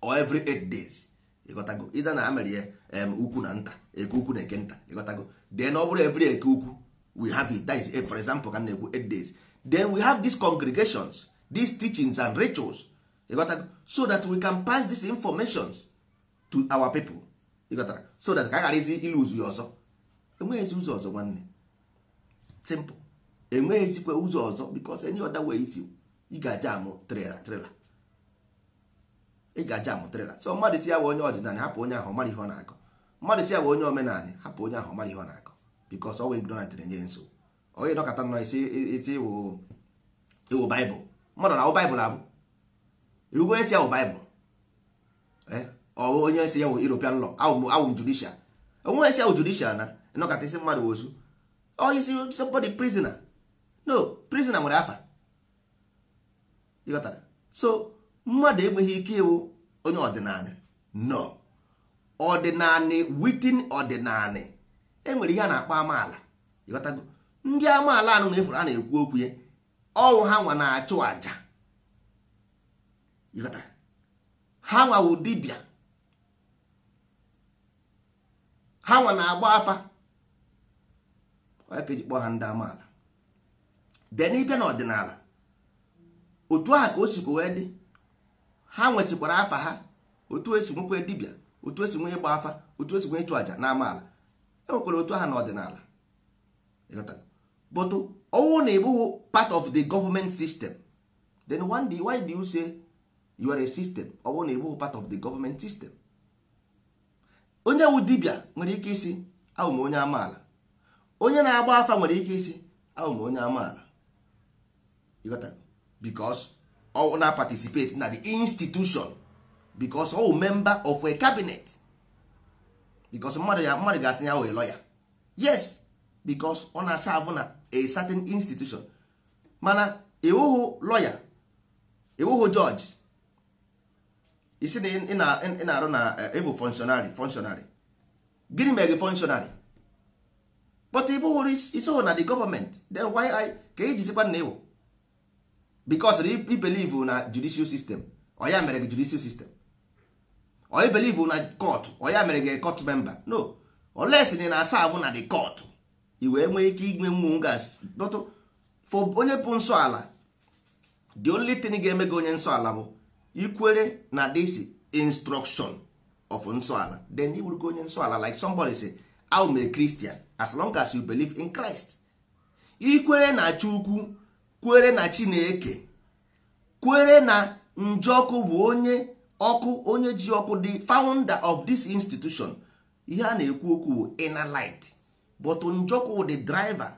or every eight days ịgotago ịda na amerie em ukwu na nta eke ukwu na eke nta ịgotago then ọ bụrụ every eke ukwu we have it that is eh, for example ka na-ekwu eight days then we have these congregations these teachings and rituals ịgotago so that we can pass these informations to our people ịgotara so that ka a ghara izi iluzu ya ọzọ enweghịzi ụzọ ọzọ nwanne simple enweghịzikwa ụzọ ọzọ because any ọda wee isi ịga aja amụ trela so mmadụ si ya wee onye ọdịnala hapụ onye ahụ mara ihe ọ na-akọ mmadụ si ya wee onye omenala hapụ onye ahụ mara ihe ọ na-akọ eh? ọ wee enye nso onye nọ baịbụl abụ isi mmadụ wozu or oh, is somebody prisoner no prisoner nwere afa ịghọtara so mmadụ enweghị ike ịwụ onye ọdịnala no ọdịnala witin ọdịnala enwere ihe a na-akpọ amaala ịghọtago ndị amaala anụ na-efuru a na-ekwu okwu ya ọwụ ha nwa na-achụ àjà ịghọtara ha nwawu dibịa ha nwa na-agba afa onye ka eji kpọọ ha ndị amaala den ịbịa n'ọdịnala otu aha ka o sikwa wee dị ha nwetịkwara afa ha otu esi nwekwe dibịa otu esi nwee ịgba afa otu esi nwee ịchụ àjà na amaala enwekwara otu aha n'ọdịnala but ọnwụ na ịbụghị part of the government system then one day why do you say you are a system ọnwụ na ịbụghị part of the government system onye wu dibịa nwere ike isi ahụ m onye amaala onye na-agba afa nwere ike isi ahụ m onye amaala because ọ na participate na the institution because ọ wụ member of a cabinet because mmadụ ya mmadụ ga-asị ya wee lawyer yes because ọ na-asavụ na a certain institution mana iwuhu lawyer iwuhu judge isi na ị na-arụ na eh, ịbụ functionary functionary gịnị mere gị functionary but ị bụghị so na the government then why I ka ijizikwa na iwu because i believe na judicial system oya mere gị judicial system oyi believe na court oya mere gị court member no unless na na serve na the court i wee nwee ike inwe mmụọ gas for onye bụ nsọ ala the only thing ga-eme gị onye nsọ ala bụ ikwere na this instruction of nsọ ala then i onye nsọ ala like somebody say I'm a Christian as long as you believe in Christ. ikwere na Chukwu kwere na Chineke kwere na Njọkụ bụ onye ọkụ onye ji ọkụ the founder of this institution ihe a na-ekwu okwu bụ inner light but Njọkụ the driver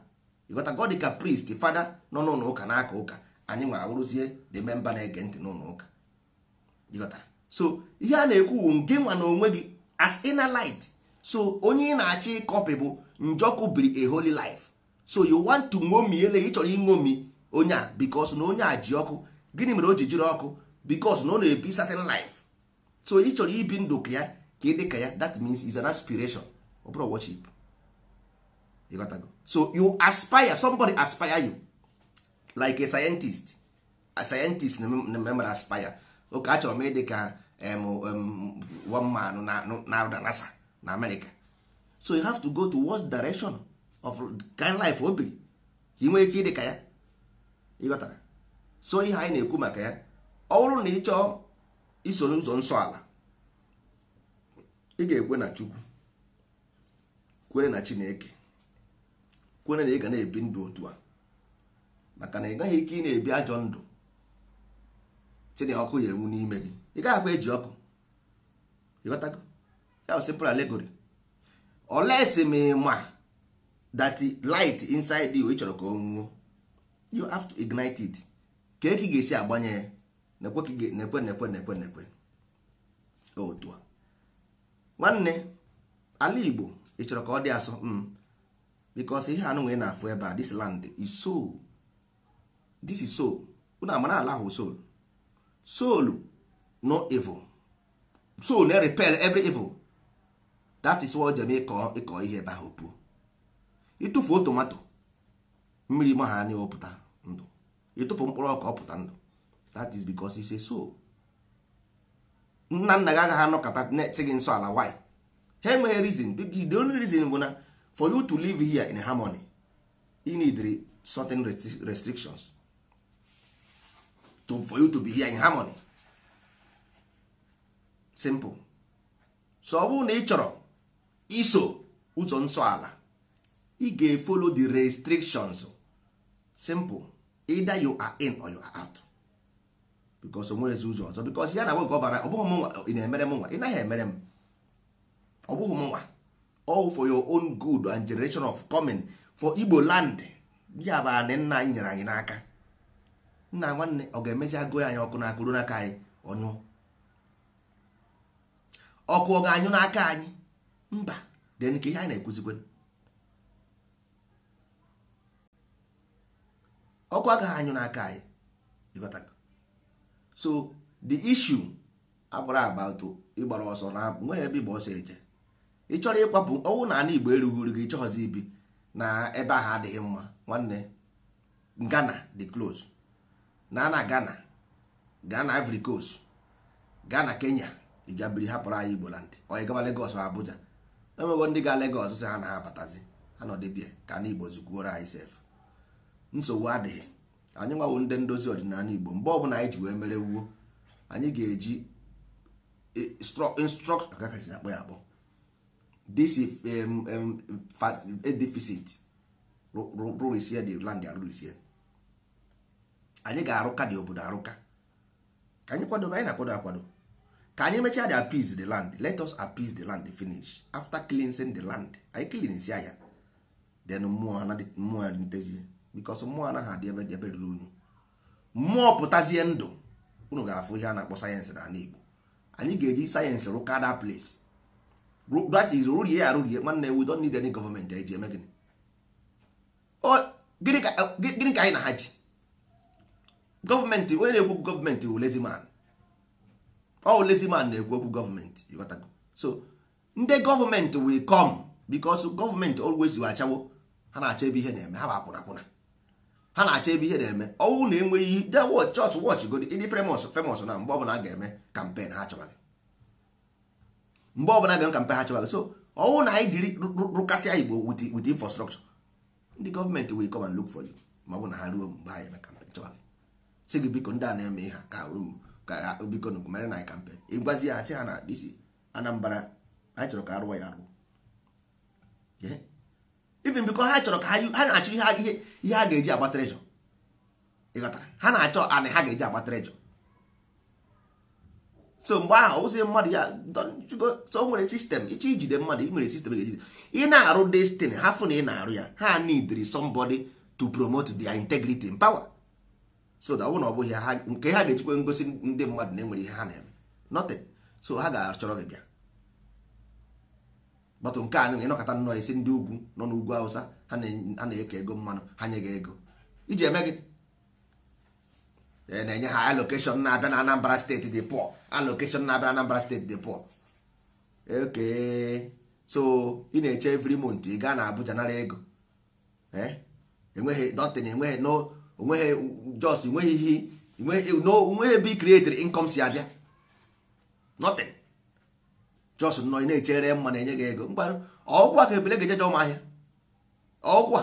igota dịka priest fada nọ n'ụlọ ụka n'aka ụka anyị nwa abụrụzie the member na-ege ntị n'ụlọ ụka so ihe a na-ekwu bụ nge nwa na onwe gị as inner light so onye ị na-achọ ịkọpị bụ njọkụ biri a holy life so you want to ṅomi ele ị chọrọ ịṅomi onye a bikos na onye a ji ọkụ gịnị mere o ji jiri ọkụ bikos na ọ na-ebi certain life so ị chọrọ ibi ndụ ka ya ka ị dị ka ya that means is an aspiration ọ bụrụ worship so you aspire somebody aspire you like a scientist a scientist na-ememere aspire oke achọrọ m ịdị ka one man na-arụ na nasa na amerịka so you have to go to worst direction of kind life obiri ka ị ike ịdị ka ya ịghọtara so ihe anyị na-ekwu maka ya ọ bụrụ na ị chọọ iso n'ụzọ nsọ ala ị ga-ekwe na chukwu kwere na chineke kwere na ị ga na-ebi ndụ otu a maka na ị gaghị ike ị na-ebi ajọ ndụ chineke ọkụ ya enwu n'ime gị ị gaghị akwa eji ọkụ ịghọtago that's simple allegory unless ma ma that light inside you ị chọrọ ka o nwuo you have to ignite it ka eke ga-esi agbanye ya nekwe nekwe nekwe nekwe nekwe otu a nwanne ala Igbo ị chọrọ ka ọ dị asọ m mm, bikos ihe anụ nwee na-afụ ebe a this land is soul this is soul unu amara ala ahụ soul soul no evil soul na repel every evil that is what jem ịkọ ihe ebe ahụ puo ịtụfuo tomato mmiri ma ha anyị ọpụta ndụ ịtụfu mkpụrụ ọka ọpụta ndụ that is because it's a nna nna gị agaghị anọkọta na gị nsọ ala why ha enweghị reason the only reason bụ na for you to live here in harmony you need certain restrictions to, for you to be here in harmony simple so ọ bụrụ na ị chọrọ iso ụzọ nsọala ị ga-efolo the restrictions simple either you are in or you are out because o nwerezi ụzọ ọzọ because ya na nwe gọbara ọ bụghị mụnwa ị na-emere mụnwa ị naghị emere m ọ bụghị mụnwa all for your own good and generation of coming for Igbo land ya bụ anị nna anyị nyere anyị n'aka nna nwanne ọ ga-emezi agụ anyị ọkụ n'aka ruo n'aka anyị ọnyụọ ọkụ ọ ga-anyụ n'aka anyị mba den ka ihe anyị na-ekwuzikwe ọkụ agaghị anyụ n'aka anyị ịghọtago so the issue abụrụ abatụ ịgbara ọsọ na nweghị ebe ịgba ọsọ eje ị chọrọ ịkwapụ ọnwụ na ala igbo erughị uru gị chọghọzi ibi na ebe ahụ adịghị mma nwanne Ghana the close na na Ghana Ghana Ivory Coast Ghana Kenya ị ga biri hapụrụ anyị Igbo land onye gaba Lagos Abuja enwego ndị ga Lagos sị ha na ha abatazi ha nọdịbịa ka na Igbo zukwuoro anyị sef nsogbu adịghị anyị nwawo ndị ndozi ọdịnala Igbo mgbe ọbụla anyị ji wee mere wuo anyị ga-eji eh, instruct akakasi akpọ ya akpọ this deficit rụrisie the land arụrisie anyị ga-arụka dị obodo arụka ka anyị kwadobe anyị na-akwado akwado ka anyị mechaa the appease the land let us appease the land finish after cleansing the land anyị cleansi ya then mmụọ mmụọ adịtezie because mmụọ anaghị adị ebe dị ebe ruru unu mmụọ pụtazie ndụ unu ga-afụ ihe a na-akpọ sayensị na Igbo anyị ga-eji sayensị rụka that place that is rụrie ya rụrie nwanne we don't need any gọọmenti anyị ji eme gịnị gịnị ka anyị na ha ji gọọmenti onye na-ekwu gọọmenti wụ lazy man all lazy man na-ekwu okwu gọọmenti ịghọtago so ndị gọọmenti will come because gọọmenti always achawo ha na-achọ ebe ihe na-eme ha bụ akwụna akwụna ha na-achọ ebe ihe na-eme ọnwụ na enweghị ihe de wọch chọọchị wọch godi ndị famous famous na mgbe ọbụla ga-eme kampen ha chọbaghị mgbe ọbụla ga-eme kampen ha chọbaghị so ọnwụ na anyị jiri rụkasịa igbo wit infrastructure ndị gọọmenti will come and look for you ma ọ bụ na ha ruo mgbe ha eme kampen chọbaghị gị biko ndị a na-eme ihe ka um, ka ha biko mere na kampen ịgwazi ya sị ha na disi anambra anyị chọrọ ka arụwa ya arụ even biko ha chọrọ ka ha na-achọ ihe ha ga-eji agba trejọ ịghọtara ha na-achọ anị ha ga-eji agba trejọ so mgbe ahụ ụzi mmadụ ya so nwere sistem ịchọ ijide mmadụ nwere sistem ga-ejide ị na-arụ destin hafụ na ị na-arụ ya ha need somebody to promote their integrity and power so ọ bụ na ọ bụghị ha nke ha ga-ejikwa ngosi ndị mmadụ na-enwere ihe ha na-eme nothing so ha ga-achọrọ gị bịa batụ nke a nị ịnọkọta nnọọ isi ndị ugwu nọ n'ugwu awụsa ha na-eke ego mmanụ ha nye gị ego iji eme gị na-enye ha alokeshọn na-abịa na Anambra steeti dị pụọ alokeshọn na-abịa na Anambra steeti dị pụọ oke so ị na-eche every month ị gaa na Abuja nara ego enweghị dọtịn enweghị no onweghị jos nweghị ihe onweghị ebe i created si abịa nothing jos nọ na-echere mma na-enye gị ego mgbarụ ọkwa ka ebele ga-ejeje ọgwụ ọkwa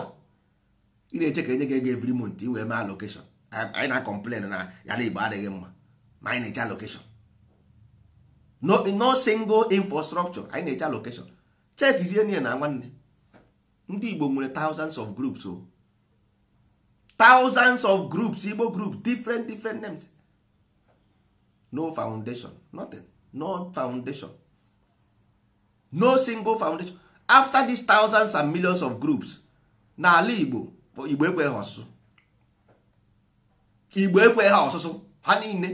ị na-eche ka enye gị ego every month iwee mee allocation anyị na-complain na ya na igbo adịghị mma ma anyị na-eche allocation no, single infrastructure anyị na-eche allocation chekizie n'ihe na nwanne ndị igbo nwere tausands of groups o oh. thousands of groups igbo groups different different names no foundation nothing no foundation no single foundation after these thousands and millions of groups n'ala igbo igbo ekweghị ọsụsụ igbo ekweghị ọsụsụ ha niile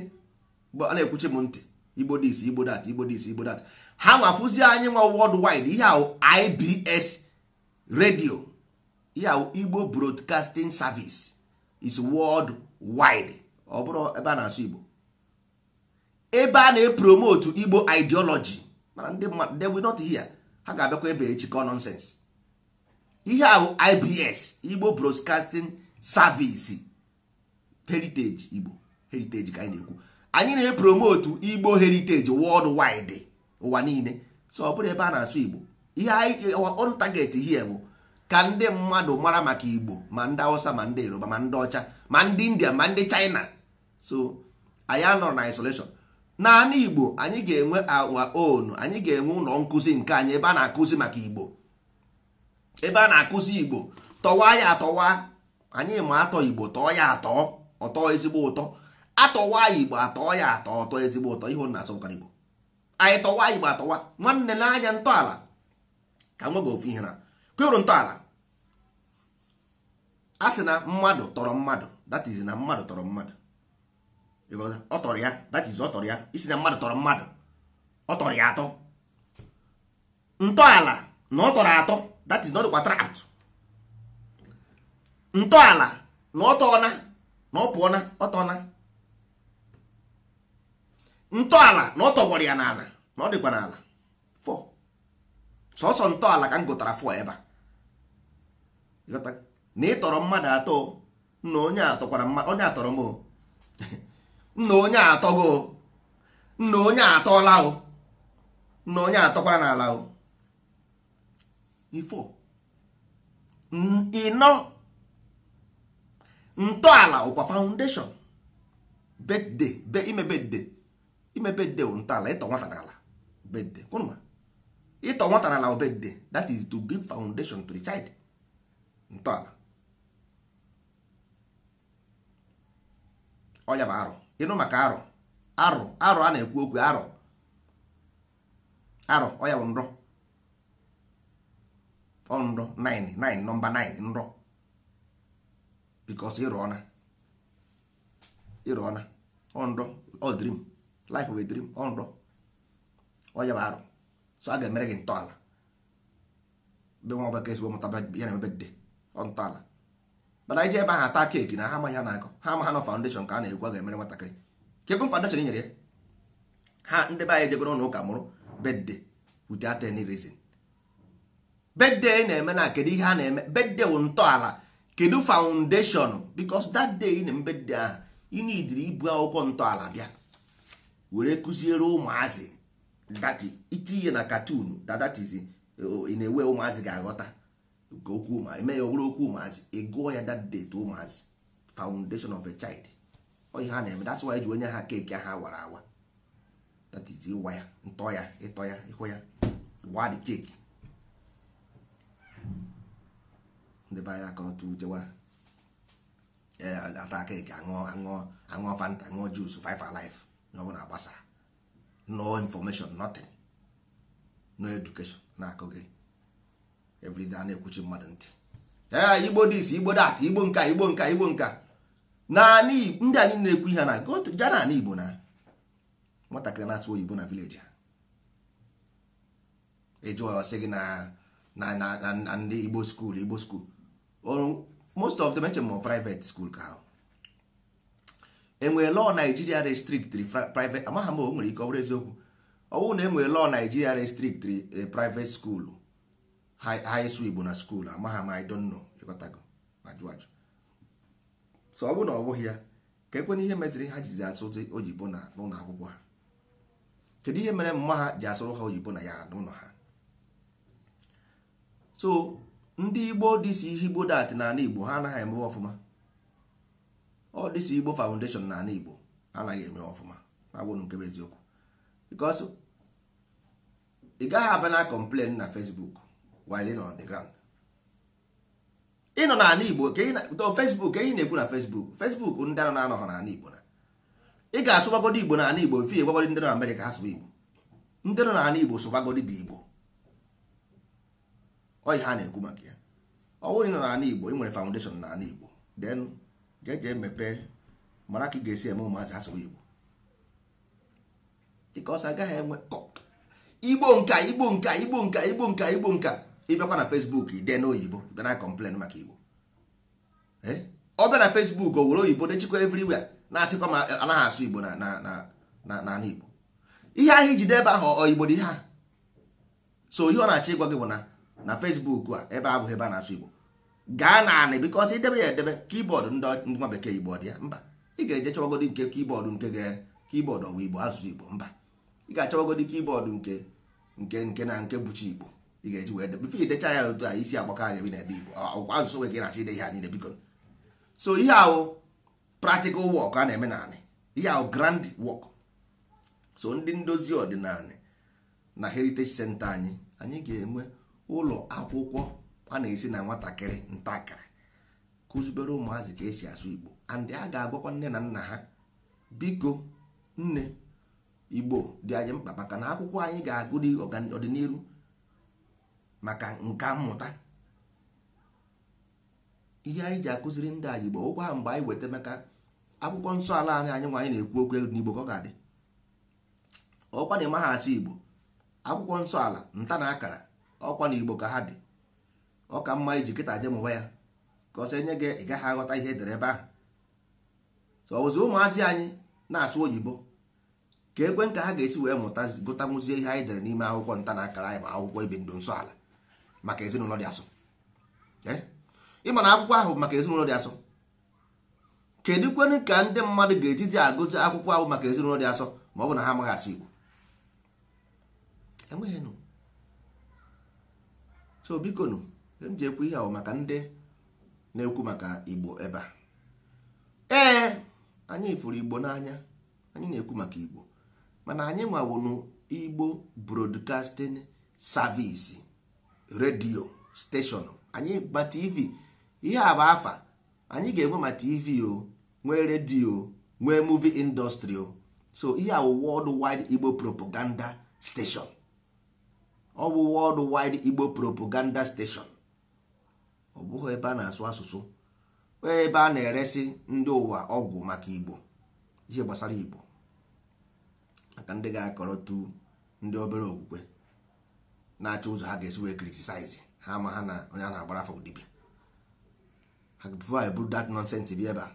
a na-ekwuchi m ntị igbo dis igbo dat igbo dis igbo dat ha nwafụzi anyị nwa wide ihe ahụ ibs radio ihe ahụ igbo broadcasting service is world wide ọ bụrụ ebe a na-asụ Igbo ebe a na-epromote Igbo ideology mana ndị mmadụ they not hear ha ga-abịakwa ebe echikọ nonsense ihe ahụ IBS Igbo Broadcasting Service heritage Igbo heritage ka anyị na-ekwu anyị na-epromote Igbo heritage world wide ụwa niile so ọ bụrụ ebe a na-asụ Igbo ihe on target here bụ ka ndị mmadụ mara maka igbo ma ndị awụsa ma ndị yoruba ma ndị ọcha ma ndị india ma ndị china so anyị anọrọ na isolation naanị igbo anyị ga-enwe awa onu anyị ga-enwe ụlọ nkụzi nke anyị ebe a na-akụzi maka igbo ebe a na-akụzi igbo tọwa ya atọwa anyị ma atọ igbo tọọ ya atọ ọtọ ezigbo ụtọ atọwa igbo atọ ya atọ ọtọ ezigbo ụtọ ihe na asọmkara igbo anyị tọwa igbo atọwa nwanne n'anya ntọala ka nwe ofu ihe na kwụrụ ntọala a sị na mmadụ tọrọ mmadụ that is na mmadụ tọrọ mmadụ ọ tọrọ ya that is ya isi na mmadụ tọrọ mmadụ ọ ya atọ ntọala na ọ tọrọ atọ that is na ọ dịkwa trapt ntọala na ọ tọọna na ọ pụọna ọ tọọna ntọala na ọ tọgbọrọ ya n'ala na ọ dịkwa n'ala fọ sọsọ ntọala ka m gụtara fọ ebe a na tọrọ mmadụ atọ na onye atọkwara mmadụ onye atọrọ m nna onye atọ atọgo nna onye atọla o nna onye atọkwara n'ala o ifo ịnọ ntọala ụkwa foundation bedde be ime bedde ime bedde bụ ntọala ịtọ nwata n'ala bedde kwụnụma ịtọ nwata n'ala bedde that is to give foundation to the child ntọala ọya bụ arụ ịnụ maka arụ arụ arụ a na-ekwu okwu arụ arụ ọya bụ nrọ ọnrọ 9 9 nọmba 9 nrọ bikos ịrụ na ịrụ ọna ọnrọ ọ drim life of a dream ọnrọ ọya bụ arụ so a ga-emere gị ntọala be nwa ọbaka ezigbo mụta ya na emebe dị ntọala mana anyị ji ebe ahụ ata keeki na ha amaghị ha na-akọ ha ama ha nọ foundation ka a na a ga-emere nwatakịrị kekwu foundation nyere ya ha ndị be anyị jegoro ụlọ ụka mụrụ bedde without any reason bedde na-eme na kedu ihe a na-eme bedde wụ ntọala kedu foundation because that day na mbedde ahụ ị ibu akwụkwọ ntọala bịa were kụziere ụmụazị dati itinye na katun that eh, oh, ị na-ewe ụmụazị ga-aghọta nke okwu ụmụazị ya ọ bụrụ okwu ụmụazị ịgụọ ya that date ụmụazị foundation of a child ọ ha na-eme that's why ji onye ha keeki ha wara awa that is ịwa ya ntọ ya ịtọ ya ịhụ ya wa the cake ndị be anyị akọrọta ujewa ata keeki aṅụọ aṅụọ aṅụọ fanta aṅụọ jus five alive na ọ na gbasara no information nothing no education na-akụgịrị everyday na-ekwuchi mmadụ ntị ee igbo dis igbo dat igbo nka igbo nka igbo nka naanị ndị anyị na-ekwu ihe na ga na igbo na nwatakịrị na-atụ oyibo na vileji ha ịjụọ e sị gị na na ndị igbo skuul igbo skuul most of them eche private school ka ahụ enwere lọọ naijiria restriktri private amaghị m o nwere ike ọ bụrụ eziokwu ọwụ na enwere lọọ naijiria restriktri eh, private skuulu ha ịsụ igbo na skuul amagha m anyị don't know ịghọtago ma jụ ajụ so ọ bụrụ na ọ bụghị ya ka ekwe na ihe meziri ha jizi asụ oyibo na n'ụlọ akwụkwọ ha kedu ihe mere mma ha ji asụrụ ha oyibo na ya n'ụlọ ha so ndị igbo dịsi igbo dat na ala igbo ha anaghị emewe ọfụma ọ dịsi igbo foundation na ala igbo anaghị emewe ọfụma na agbụrụ nke bụ eziokwu because ị gaghị abịa na complain na fesbuk. while ịnọ on the ground ịnọ n'ala Igbo Facebook ehi na-ekwu na Facebook Facebook ndị a na-anọghọ n'ala Igbo na ị ga-asụbagodi Igbo n'ala Igbo fi egbagodi ndị nọ Amerịka ha sụba Igbo ndị nọ n'ala Igbo sụbagodi dị Igbo ọyị ha na-ekwu maka ya ọ bụrụ ịnọ n'ala Igbo ị nwere foundation n'ala Igbo then jeje mepee mara ka ị ga-esi eme ụmụazị ha sụba Igbo dịka ọsọ agaghị enwe Igbo nka Igbo nka Igbo nka Igbo nka Igbo nka ịbịakwa na Facebook dee oyibo bịa na maka igbo eh? ọ bịa na Facebook o were oyibo dechikwa everywhere na-asịkwa ma anaghị asụ igbo na igbo ihe ahịa ijide ebe ahụ oyibo dị ha a so ihe ọ na-achọ ịgwa gị bụ na na Facebook a ebe abụghị ebe a na-asụ igbo gaa na anị bikọs idebe ya edebe kibọọdụ ndị nwa bekee igbo dị ya mba ị ga-eje chọwagodi nke kibọọdụ nke ga kibọọdụ ọwa igbo asụsụ igbo mba ị ga-achọwagodi kibọọdụ nke nke nke na nke bụchi igbo ị ga-eji wee bifo idecha ya otu a isi agbakọ aga ebi na ede igbo ọkwa asụsụ nwe ka ị na-achọ ide ihe a niile biko so ihe ahụ practical work a na-eme naanị ihe ahụ grand work so ndị ndozi ọdịnala na heritage center anyị anyị ga-enwe ụlọ akwụkwọ a na-esi na nwatakịrị ntakịrị kụzibere ụmụazị ka esi asụ igbo and a ga-agwakwa nne na nna ha biko nne igbo dị anyị mkpa maka na akwụkwọ anyị ga-agụ ọdịnihu maka nka mmụta ihe anyị ji akụziri ndị anyị igbo ụkwa ha mgbe anyị weta maka akwụkwọ nsọ ala anyị anyị nwa na-ekwu okwu n'igbo ka ọ ga-adị ọkwa na ha asụ igbo akwụkwọ nsọ ala nta na akara ọkwa na igbo ka ha dị ọ ka mma iji kịta je mụba ya ka ọ sị enye gị ị gaghị aghọta ihe edere ebe ahụ ọbụzi ọ ụmụazị anyị na-asụ oyibo ka ekwe nka ha ga-esi wee mụta gụtamụzie ihe anyị dere n'ime akwụkwọ nta na akara anyị ma akwụkwọ ibi ndụ nsọ ala maka ezinụlọ dị asọ eh? ịma akwụkwọ ahụ maka ezinụlọ dị asọ kedu ka ndị mmadụ ga-ejizi agụzi akwụkwọ ahụ maka ezinụlọ dị asọ ma ọ bụ na ha amaghị asụ Igbo enweghị so biko nụ e m ji ekwu ihe ahụ maka ndị na-ekwu maka Igbo ebe a ee anyị fụrụ Igbo n'anya anyị na-ekwu maka Igbo mana anyị nwawụnụ Igbo Broadcasting Service redio steshọn anyị ma tv ihe a bụ anyị ga-enwe ma tv o nwee redio nwee muvi indọstrị o so ihe a bụ world igbo propaganda steshọn ọ bụ world igbo propaganda steshọn ọ bụghị ebe a na-asụ asụsụ ebe a na-eresi ndị ụwa ọgwụ maka igbo ihe gbasara igbo maka ndị ga tu ndị obere okwukwe na-achọ ụzọ ha ga-esi wee criticize ha ma ha na onye a na-agbara afọ dibịa ha bụrụ eburu dat nonsense bịa ebe a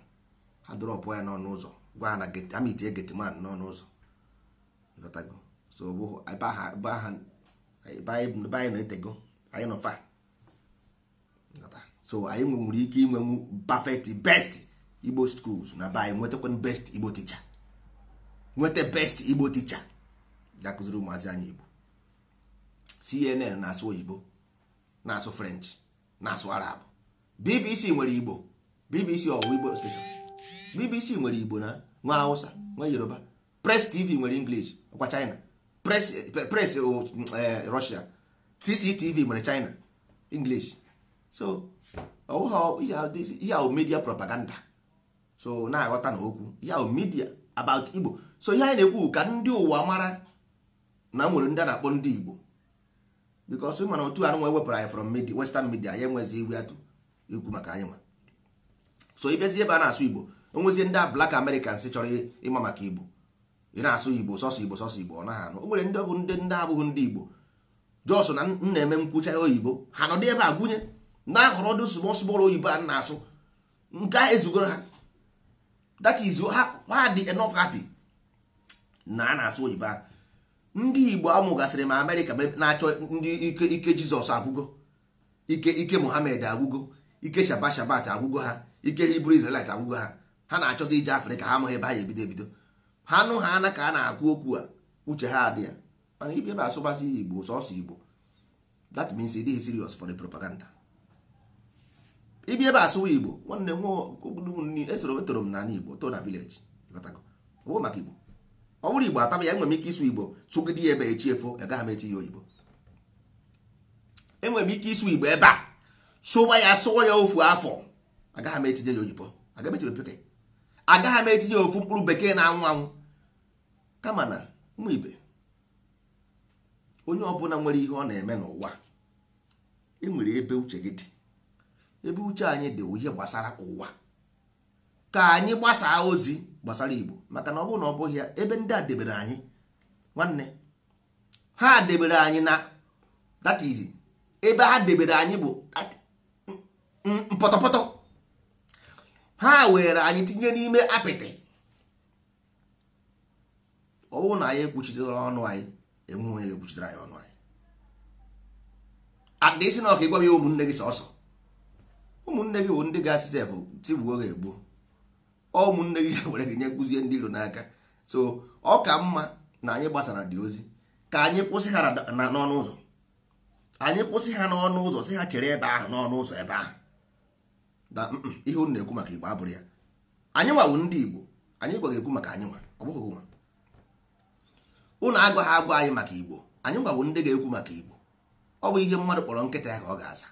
ha dọrọpụ ya n'ọnụ ụzọ gwa ha na amitie getiman n'ọnụ ụzọ so bụ anyị na-etego anyị nọfa so anyị nwere ike inwenwu perfect best igbo schools na be anyị nwetakwa best igbo ticha nweta best igbo ticha ga-akụziri ụmụazị anyị igbo CNN na-asụ oyibo na-asụ French na-asụ Arab BBC nwere Igbo BBC ọwụwa Igbo station BBC nwere Igbo na nwa Hausa nwa Yoruba Press TV nwere English ọkwa China Press oh, eh, Russia CCTV nwere China English so ihe ahụ media propaganda so na-aghọta na okwu ihe media about Igbo so ihe anyị na-ekwu ka ndị ụwa mara na nwere ndị a na-akpọ ndị Igbo because mana otu anụ nwe anyị from media western media ya enwezi iwe atụ ikwu maka anyị nwa so ịbịazi ebe a na-asụ igbo onwezie ndị black americans chọrọ ịma maka igbo ị na-asụ igbo sọsọ igbo sọsọ igbo ọ naghị anụ o nwere ndị ọbụ ndị ndị abụghị ndị igbo jos na nna eme nkwụcha oyibo ha nọdụ ebe a gụnye na-ahọrọ dị small oyibo a na-asụ nke a ezugoro ha that is ha dị enough happy na a na-asụ oyibo ahụ ndị igbo amụgasịrị ma amerịka na-achọ ndị ike Ike jizọs agwụgo ike ike mohamed agwụgo ike shaba shabat agwụgo ha ike hibru israelit agwụgo ha ha na-achọzi ije afrịka ha amụghị ebe ha ebido ebido ha nụ ha ana ka a na-agụ okwu a uche ha adị ya mana ibe ebe asụbasị ya igbo sọsọ igbo that means it is serious for the propaganda ibi ebe asụwa igbo nwanne m esoro etoro m n'ala igbo to na village ọgwụ maka igbo ọ bụrụ igbo ataba ya enwere m ike ịsụ igbo sụgide ya ebe echi echiefo agaghị e m eti ya oyibo enwere m ike ịsụ igbo ebe a sụwa ya sụwa ya ofu afọ agaghị m etinye ya oyibo agaghị m etinye ya ofu mkpụrụ bekee na-anwụ anwụ kama na ụmụ ibe onye ọbụla nwere ihe ọ na-eme n'ụwa enwere ebe uche gị dị ebe uche anyị dị ihe gbasara ụwa ka anyị gbasaa ozi gbasara igbo maka na ọ bụrụ na ọ bụghị ya ebe ndị a debere anyị nwanne ha debere anyị na that is ebe ha debere anyị bụ mpọtọpọtọ ha were anyị tinye n'ime apịtị ọ bụrụ na anyị ekwuchitere ọnụ anyị enwe onye ekwuchitere anyị ọnụ anyị adịsị na ọ ka ịgwa ya ụmụnne gị sọsọ ụmụnne gị bụ ndị ga-asị sef tigbuo gị egbuo ụmụnne gị were gị nye kụzie ndị iro n'aka so ọ ka mma na anyị gbasara dị ozi ka anyị kwụsị ha n'ọnụ ụzọ anyị kwụsị ha n'ọnụ ụzọ sị ha chere ebe ahụ n'ọnụ ụzọ ebe ahụ na ihe unu na-ekwu maka igbo abụrụ ya anyị nwawu ndị igbo anyị gwaghị ekwu maka anyị nwa ọ bụghị nwa unu agwaghị agwa anyị maka igbo anyị nwawu ndị ga-ekwu maka igbo ọ bụ ihe mmadụ kpọrọ nkịta ya ka ọ ga-aza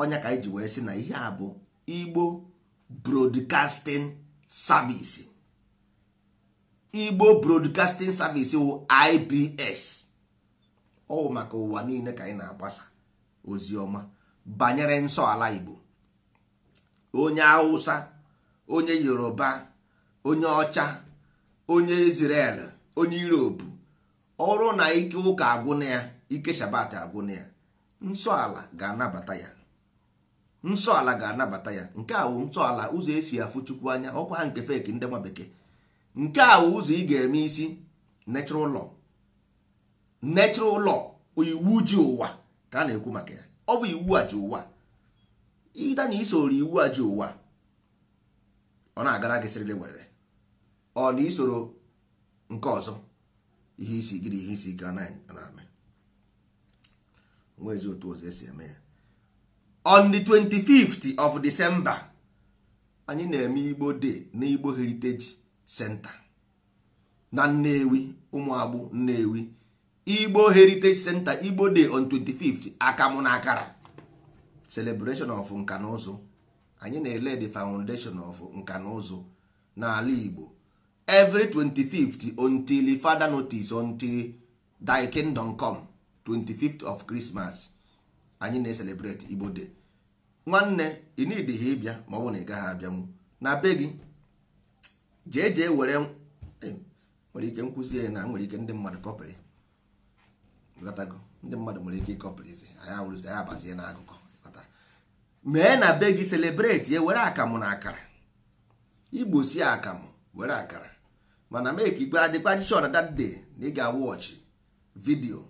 ọnya ka anyị ji wee sị na ihe a bụ igbo broadcasting service igbo broadcasting service wụ ibs ọwụ maka ụwa niile ka anyị na-agbasa ozi ọma banyere nsọ igbo onye hausa onye yoruba onye ọcha onye israel onye europe ọrụ na ike ụka agwụna ya ike shabat agwụna ya nsọ ala ga-anabata ya nsọ ala ga-anabata ya nke a wụ ntọala ụzọ esi afụ chukwu anya ọkwa ha nke feki ndị nwa bekee nke a wụ ụzọ ị ga-eme isi natural ụlọ natural ụlọ iwu ji ụwa ka a na-ekwu maka ya ọ bụ iwu a ji ụwa ịda na isoro iwu a ji ụwa ọ na-agara gị sịrịlị were ọ na isoro nke ọzọ ihe isi gịrị ihe isi ike anaghị eme nwa ezi otu ụzọ esi eme ya on the 25th of december anyị na-eme igbo day na igbo heritage center na nnewi ụmụagbụ nnewi igbo heritage center igbo dey on 25th akamụ na akara celebration of nka ụzụ anyị na-ele the foundation of nka na ụzụ n'ala igbo every 25th until father notice until thy kingdom come 25th of christmas anyị na-eselebreti igbo de nwanne ị nidịghị ịbịa ma ọ bụ na ị gaghị abịanwu na be gị jee jee were e, nwere ike nkwụzi na nwere ike ndị mmadụ kọpịrị ndị mmadụ nwere ike ịkọpịrịzi anyị awụrụzi anyị abazie na akụkọ mee na be gị selebreti were akamụ na akara igbo si akamụ were akara mana mee ka ikpe adịkwa chishọn na dat day na ị ga-awọchị vidiyo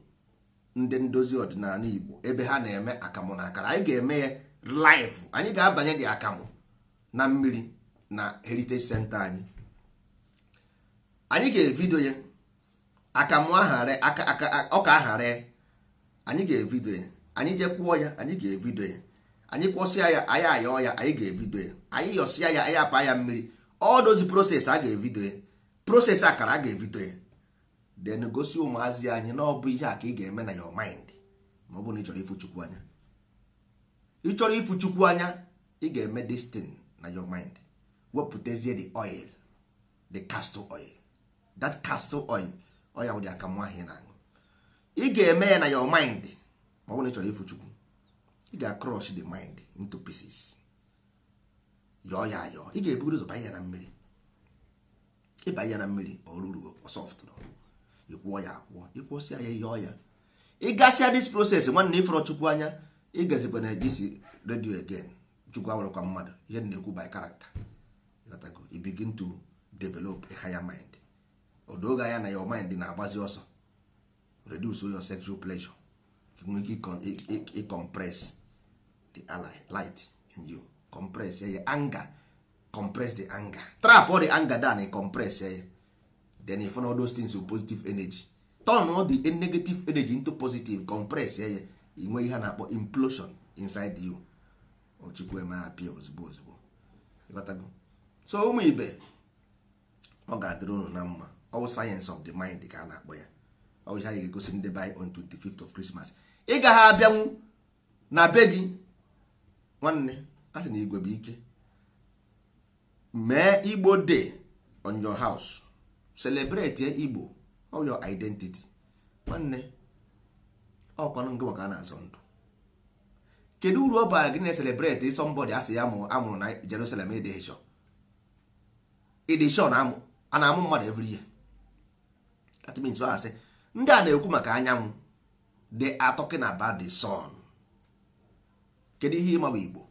ndị ndozi ọdịnala Igbo ebe ha na-eme akamụ na akara anyị ga-eme ya live anyị ga-abanye dị akamụ na mmiri na heritage senta anyị anyị ga-evidio ya akamụ ọka aghara anyị ga-evidio ya anyị jekwuo ya anyị ga-evidio ya anyị kwọsịa ya anyị ayọ ya anyị ga-evidio ya anyị yọsịa ya anyị apa ya mmiri ọ dozi process a ga-evidio ya process akara a ga-evidio ya Den gosi ụmụazị anyị na ọ bụ ihe a ka ị ga-eme na your mind ma ọ bụ na ị chọrọ ịfụ chukwu anya ị chọrọ ịfụ chukwu anya ị ga-eme destin na your mind wepụtazie the oil the castor oil that castor oil oya wụ dị akamụ ahụ na aṅụ ị ga-eme ya na your mind ma ọ bụ na ị chọrọ ịfụ chukwu ị ga-crush the mind into pieces yọọ ya ayọọ ị ga-ebugoro ụzọ banye ya na mmiri ịbanye ya na mmiri ọ ruru ọ soft ịkwụọ ya akwụọ ịkwụsịa ya ihe ọya ịgasịa dis proses nwanne ịfọrọ chukwu anya ịgazikwa na ejisi redio again chukwu awụrụkwa mmadụ ihe na-ekwu by character i to develop a higher mind odoga ya na your mind na-agbazi ọsọ reduce your sexual pleasure nwee ike ịcompress the light in you compress ya anger compress the anger trap all the anger down compress ya then you find all those things with positive energy turn all the negative energy into positive compress ya ya inwe ihe a na-akpọ implosion inside you ochukwu eme apịa ozugbo ozugbo so ụmụ ibe ọ ga-adịrị unu na mma ọwụ sayensị of the mind ka a na-akpọ ya ọ bụ anyị ga-egosi ndị be on 25th of Christmas ị gaghị abịanwu na be gị nwanne a na igwe bụ ike mee igbo dey on your house celebrate igbo all your identity nwanne ọkwanụ eh, nke nwoke a na-azọ ndụ kedu uru ọ bara gị na celebrate ịsọ eh, asị ya amụrụ na Jerusalem edishon a na-amụ mmadụ every year that means asị ndị a na-ekwu maka anyanwụ they are talking about the sun kedu ihe ịma bụ igbo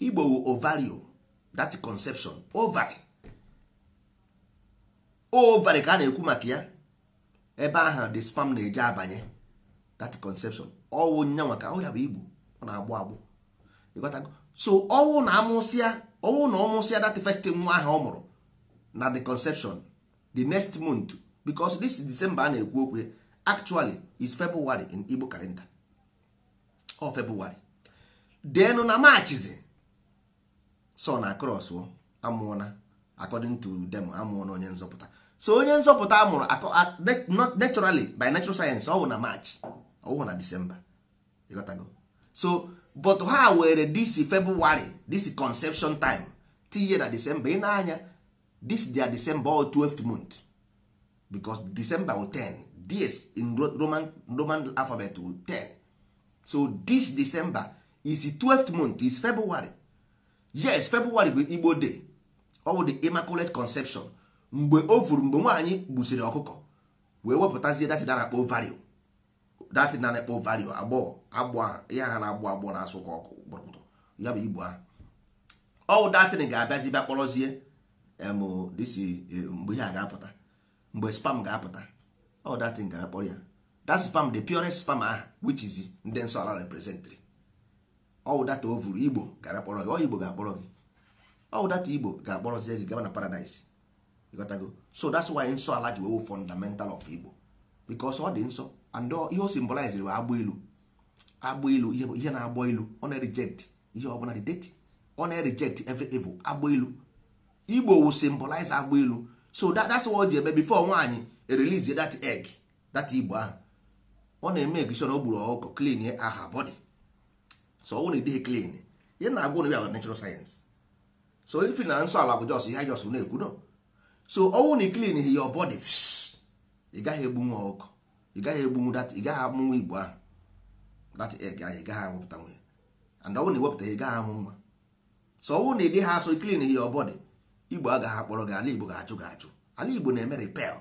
igbo ovarian that conception ovary ovari ka a na-ekwu maka ya ebe ahụ the spam na-eje abanye that conception ọwụ nyanwa ka ọ ya bụ igbo ọ na-agbụ agbụ so ọwụ na amụsịa ọwụ na ọmụsịa that first nwa ahụ ọ mụrụ na the conception the next month because this December a na-ekwu okwu actually is February in Igbo calendar ọ February denu na machizi so na cross amụọna according to them amụọna onye nzọpụta so onye nzọpụta amụrụ akọ naturally by natural science ọ bụ na march ọ bụ na december so but ha were this february this conception time tinye na december ị na-anya this dia december or 12th month because december will 10 this in roman roman alphabet will 10 so this december is 12th month is february yes february bụ igbo day ọ bụ the immaculate conception mgbe o furu mgbe nwaanyị gbusiri ọkụkọ wee wepụtazie datị na-akpọ vario datị na-akpọ vario agbọghọ agbụ ya ha na-agbọ agbọ na-asụ ka ọkụ gbụrụkpụtụ ya bụ igbo ahụ ọwụ datịn ga-abịazi bịa kpọrọzie dịsi eh, mgbe ihe a ga-apụta mgbe spam ga-apụta ọwụ datịn ga-akpọrọ ya that spam the purest spam aha which is ndị nsọ ala representri ọwụ data o vuru igbo ga-abịa kpọrọ gị ọ igbo ga-akpọrọ gị ọwụ data igbo ga-akpọrọzie gị gaba na paradise ịghọtago so that's why nsọ ala ji wewu fundamental of igbo because ọ dị nsọ and ihe o symbolize bụ agbụ ilu agbụ ilu ihe na-agbọ ilu ọ na-reject ihe ọbụla dị deti ọ na-reject every evil agbụ ilu igbo wu symbolize agbụ ilu so that's why o ji eme before nwaanyị release that egg that igbo ahụ ọ na-eme ekishon o ọkụkọ clean aha body so ọ bụrụ ịdịghị clean ihe na-agwụ na natural science so ifi na nsọ ala bụ jos ihe jos na-ekwu no so ọnwụ na iklin hi your body ị gaghị egbunwu ọkụ ị gaghị egbunwu dat ị gaghị amụnwa igbo ahụ dat egg ahụ ị gaghị amụpụta nwa ya and ọnwụ na iwepụta ị gaghị amụ nwa so ọnwụ na ịdị ha so iklin hi your body igbo agaghị akpọrọ gị ala igbo ga-ajụ gị ajụ ala igbo na-eme repel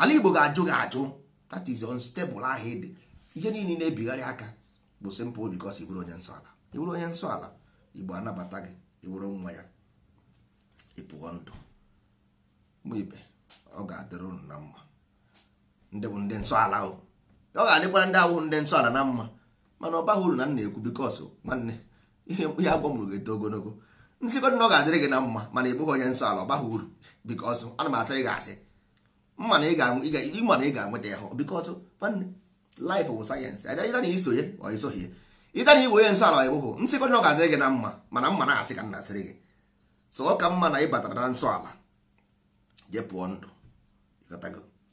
ala igbo ga-ajụ gị ajụ that is unstable ahụ ịdị ihe niile na-ebigharị aka bụ simple because ị bụrụ onye nsọ ala ị bụrụ onye nsọ ala igbo anabata gị ị bụrụ nwa ya pụọ ndụ mụ ibe ọ ga-adịrị ụnụ na mma ndị bụ ndị nsọala ọ ga-adịkwara ndị awụ ndị nsọala na mma mana ọ baghị uru na m ekwu bikọs nwanne ihe ihe agwọ m rụrụ eto ogologo nsikọta na ọ ga-adịrị gị na mma mana ị bụghị onye nsọala ọ baghị uru ana m asịrị gị asị mma na ị ga-anweta ya nwanne sayensị ọ onye na ọ ga-adịrị gị na mma mana mma na-asị ka m na-asịrị gị so ọ ka mma na ị batara na ala je pụọ ndụ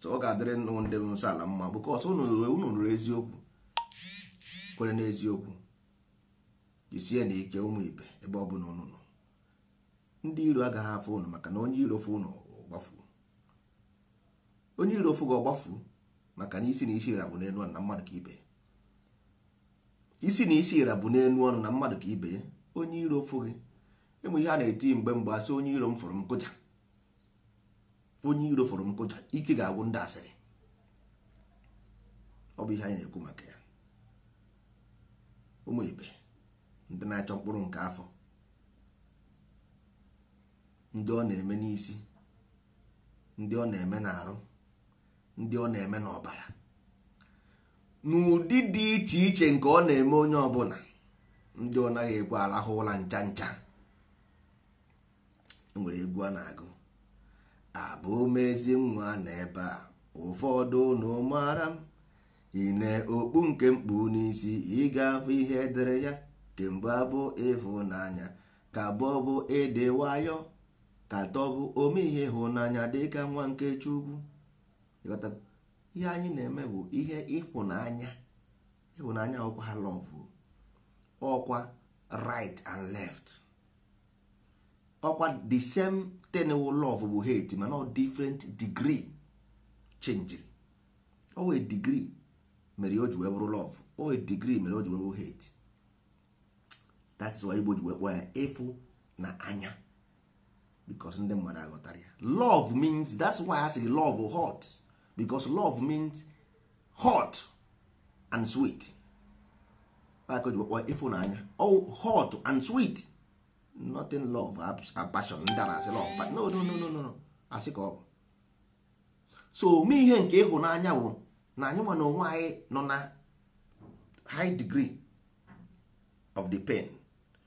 so ọ ga-adịrị nnụ ndị nsọ ala mma bụ kọsọ unu ruru eziokwu kwere n'eziokwu jisie na ike ụmụ ibe ebe ọ bụla unu nọ ndị iro agaghị afụ ụnụ maka na onye iro fụ unu ọgbafuo onye iro fụ gị ọgbafuo maka na isi na isi ira bụ n'elu ọnụ na mmadụ ka ibe isi na isi ira bụ n'elu ọnụ na mmadụ ka ibe onye iro fụ gị ịmụ ihe a na-eti mgbe mgbe asị onye iro m fụrụ m kụja onye iro fọrọ nkụja ike ga-agwụ ndị asịrị ọ bụ ihe anyị na-ekwu maka ya ụmụ ibe ndị na-achọ mkpụrụ nke afọ ndị ọ na-eme n'isi ndị ọ na-eme n'arụ ndị ọ na-eme n'ọbara n'ụdị dị iche iche nke ọ na-eme onye ọbụla ndị ọ naghị ekwe arahụ ụra ncha ncha enwere egwu a na-agụ Abụ ezi nwa n'ebe a ụfọdụ ụnụ m ị okpu nke mkpu n'isi ịga ga-afụ ihe edere ya kemgbe abụ ịhụnanya ka bọbụ ịdị nwayọ ka tọbụ ome ihe ịhụnanya dịka nwa nke Chukwu ihe anyị na-eme bụ ihe ịhụnanya ịhụnanya ọkwa lọvụ ọkwa right and left ọkwa the same ten love bụ hate mana ọ different degree chenjiri owe degree mere o ji wee bụrụ love owe degree mere o ji wee bụrụ hate is why igbo ji wee ya efu na anya because ndị mmadụ aghọtara ya love means that's why I say love hot because love means hot and sweet ka o ji efu na anya oh, hot and sweet nothing love passion ndị asị love but no no no no no asị ka ọ so ome ihe nke ịhụnanya bụ na anyị nwa na onwe anyị nọ na high degree of the pain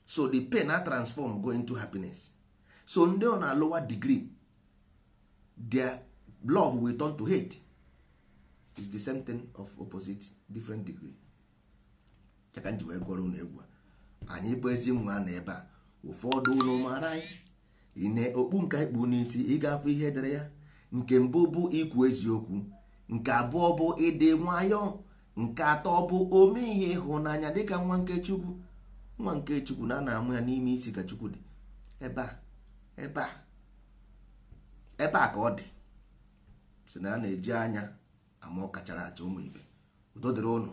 so the pain na transform go into happiness so ndị nọ na lower degree their love will turn to hate is the same thing of opposite different degree ya ka ji wee gụọrọ ụlọ egwu anyị bụ ezi nwa na ebe a ụfọdụ ụlọ mara anyị ị na-okpu nke anyị kpu n'isi ịgafe ihe dere ya nke mbụ bụ ikwu eziokwu nke abụọ bụ ịdị nwayọọ nke atọ bụ ome ihe ịhụnanya dịka nwa nke chukwu nwa nke chukwu na a amụ ya n'ime isi ka chukwu dị ebe a ebe a ebe a ka ọ dị si na a na-eji anya ama ọ kachara acha ụmụ ibe udo dịrị ụnụ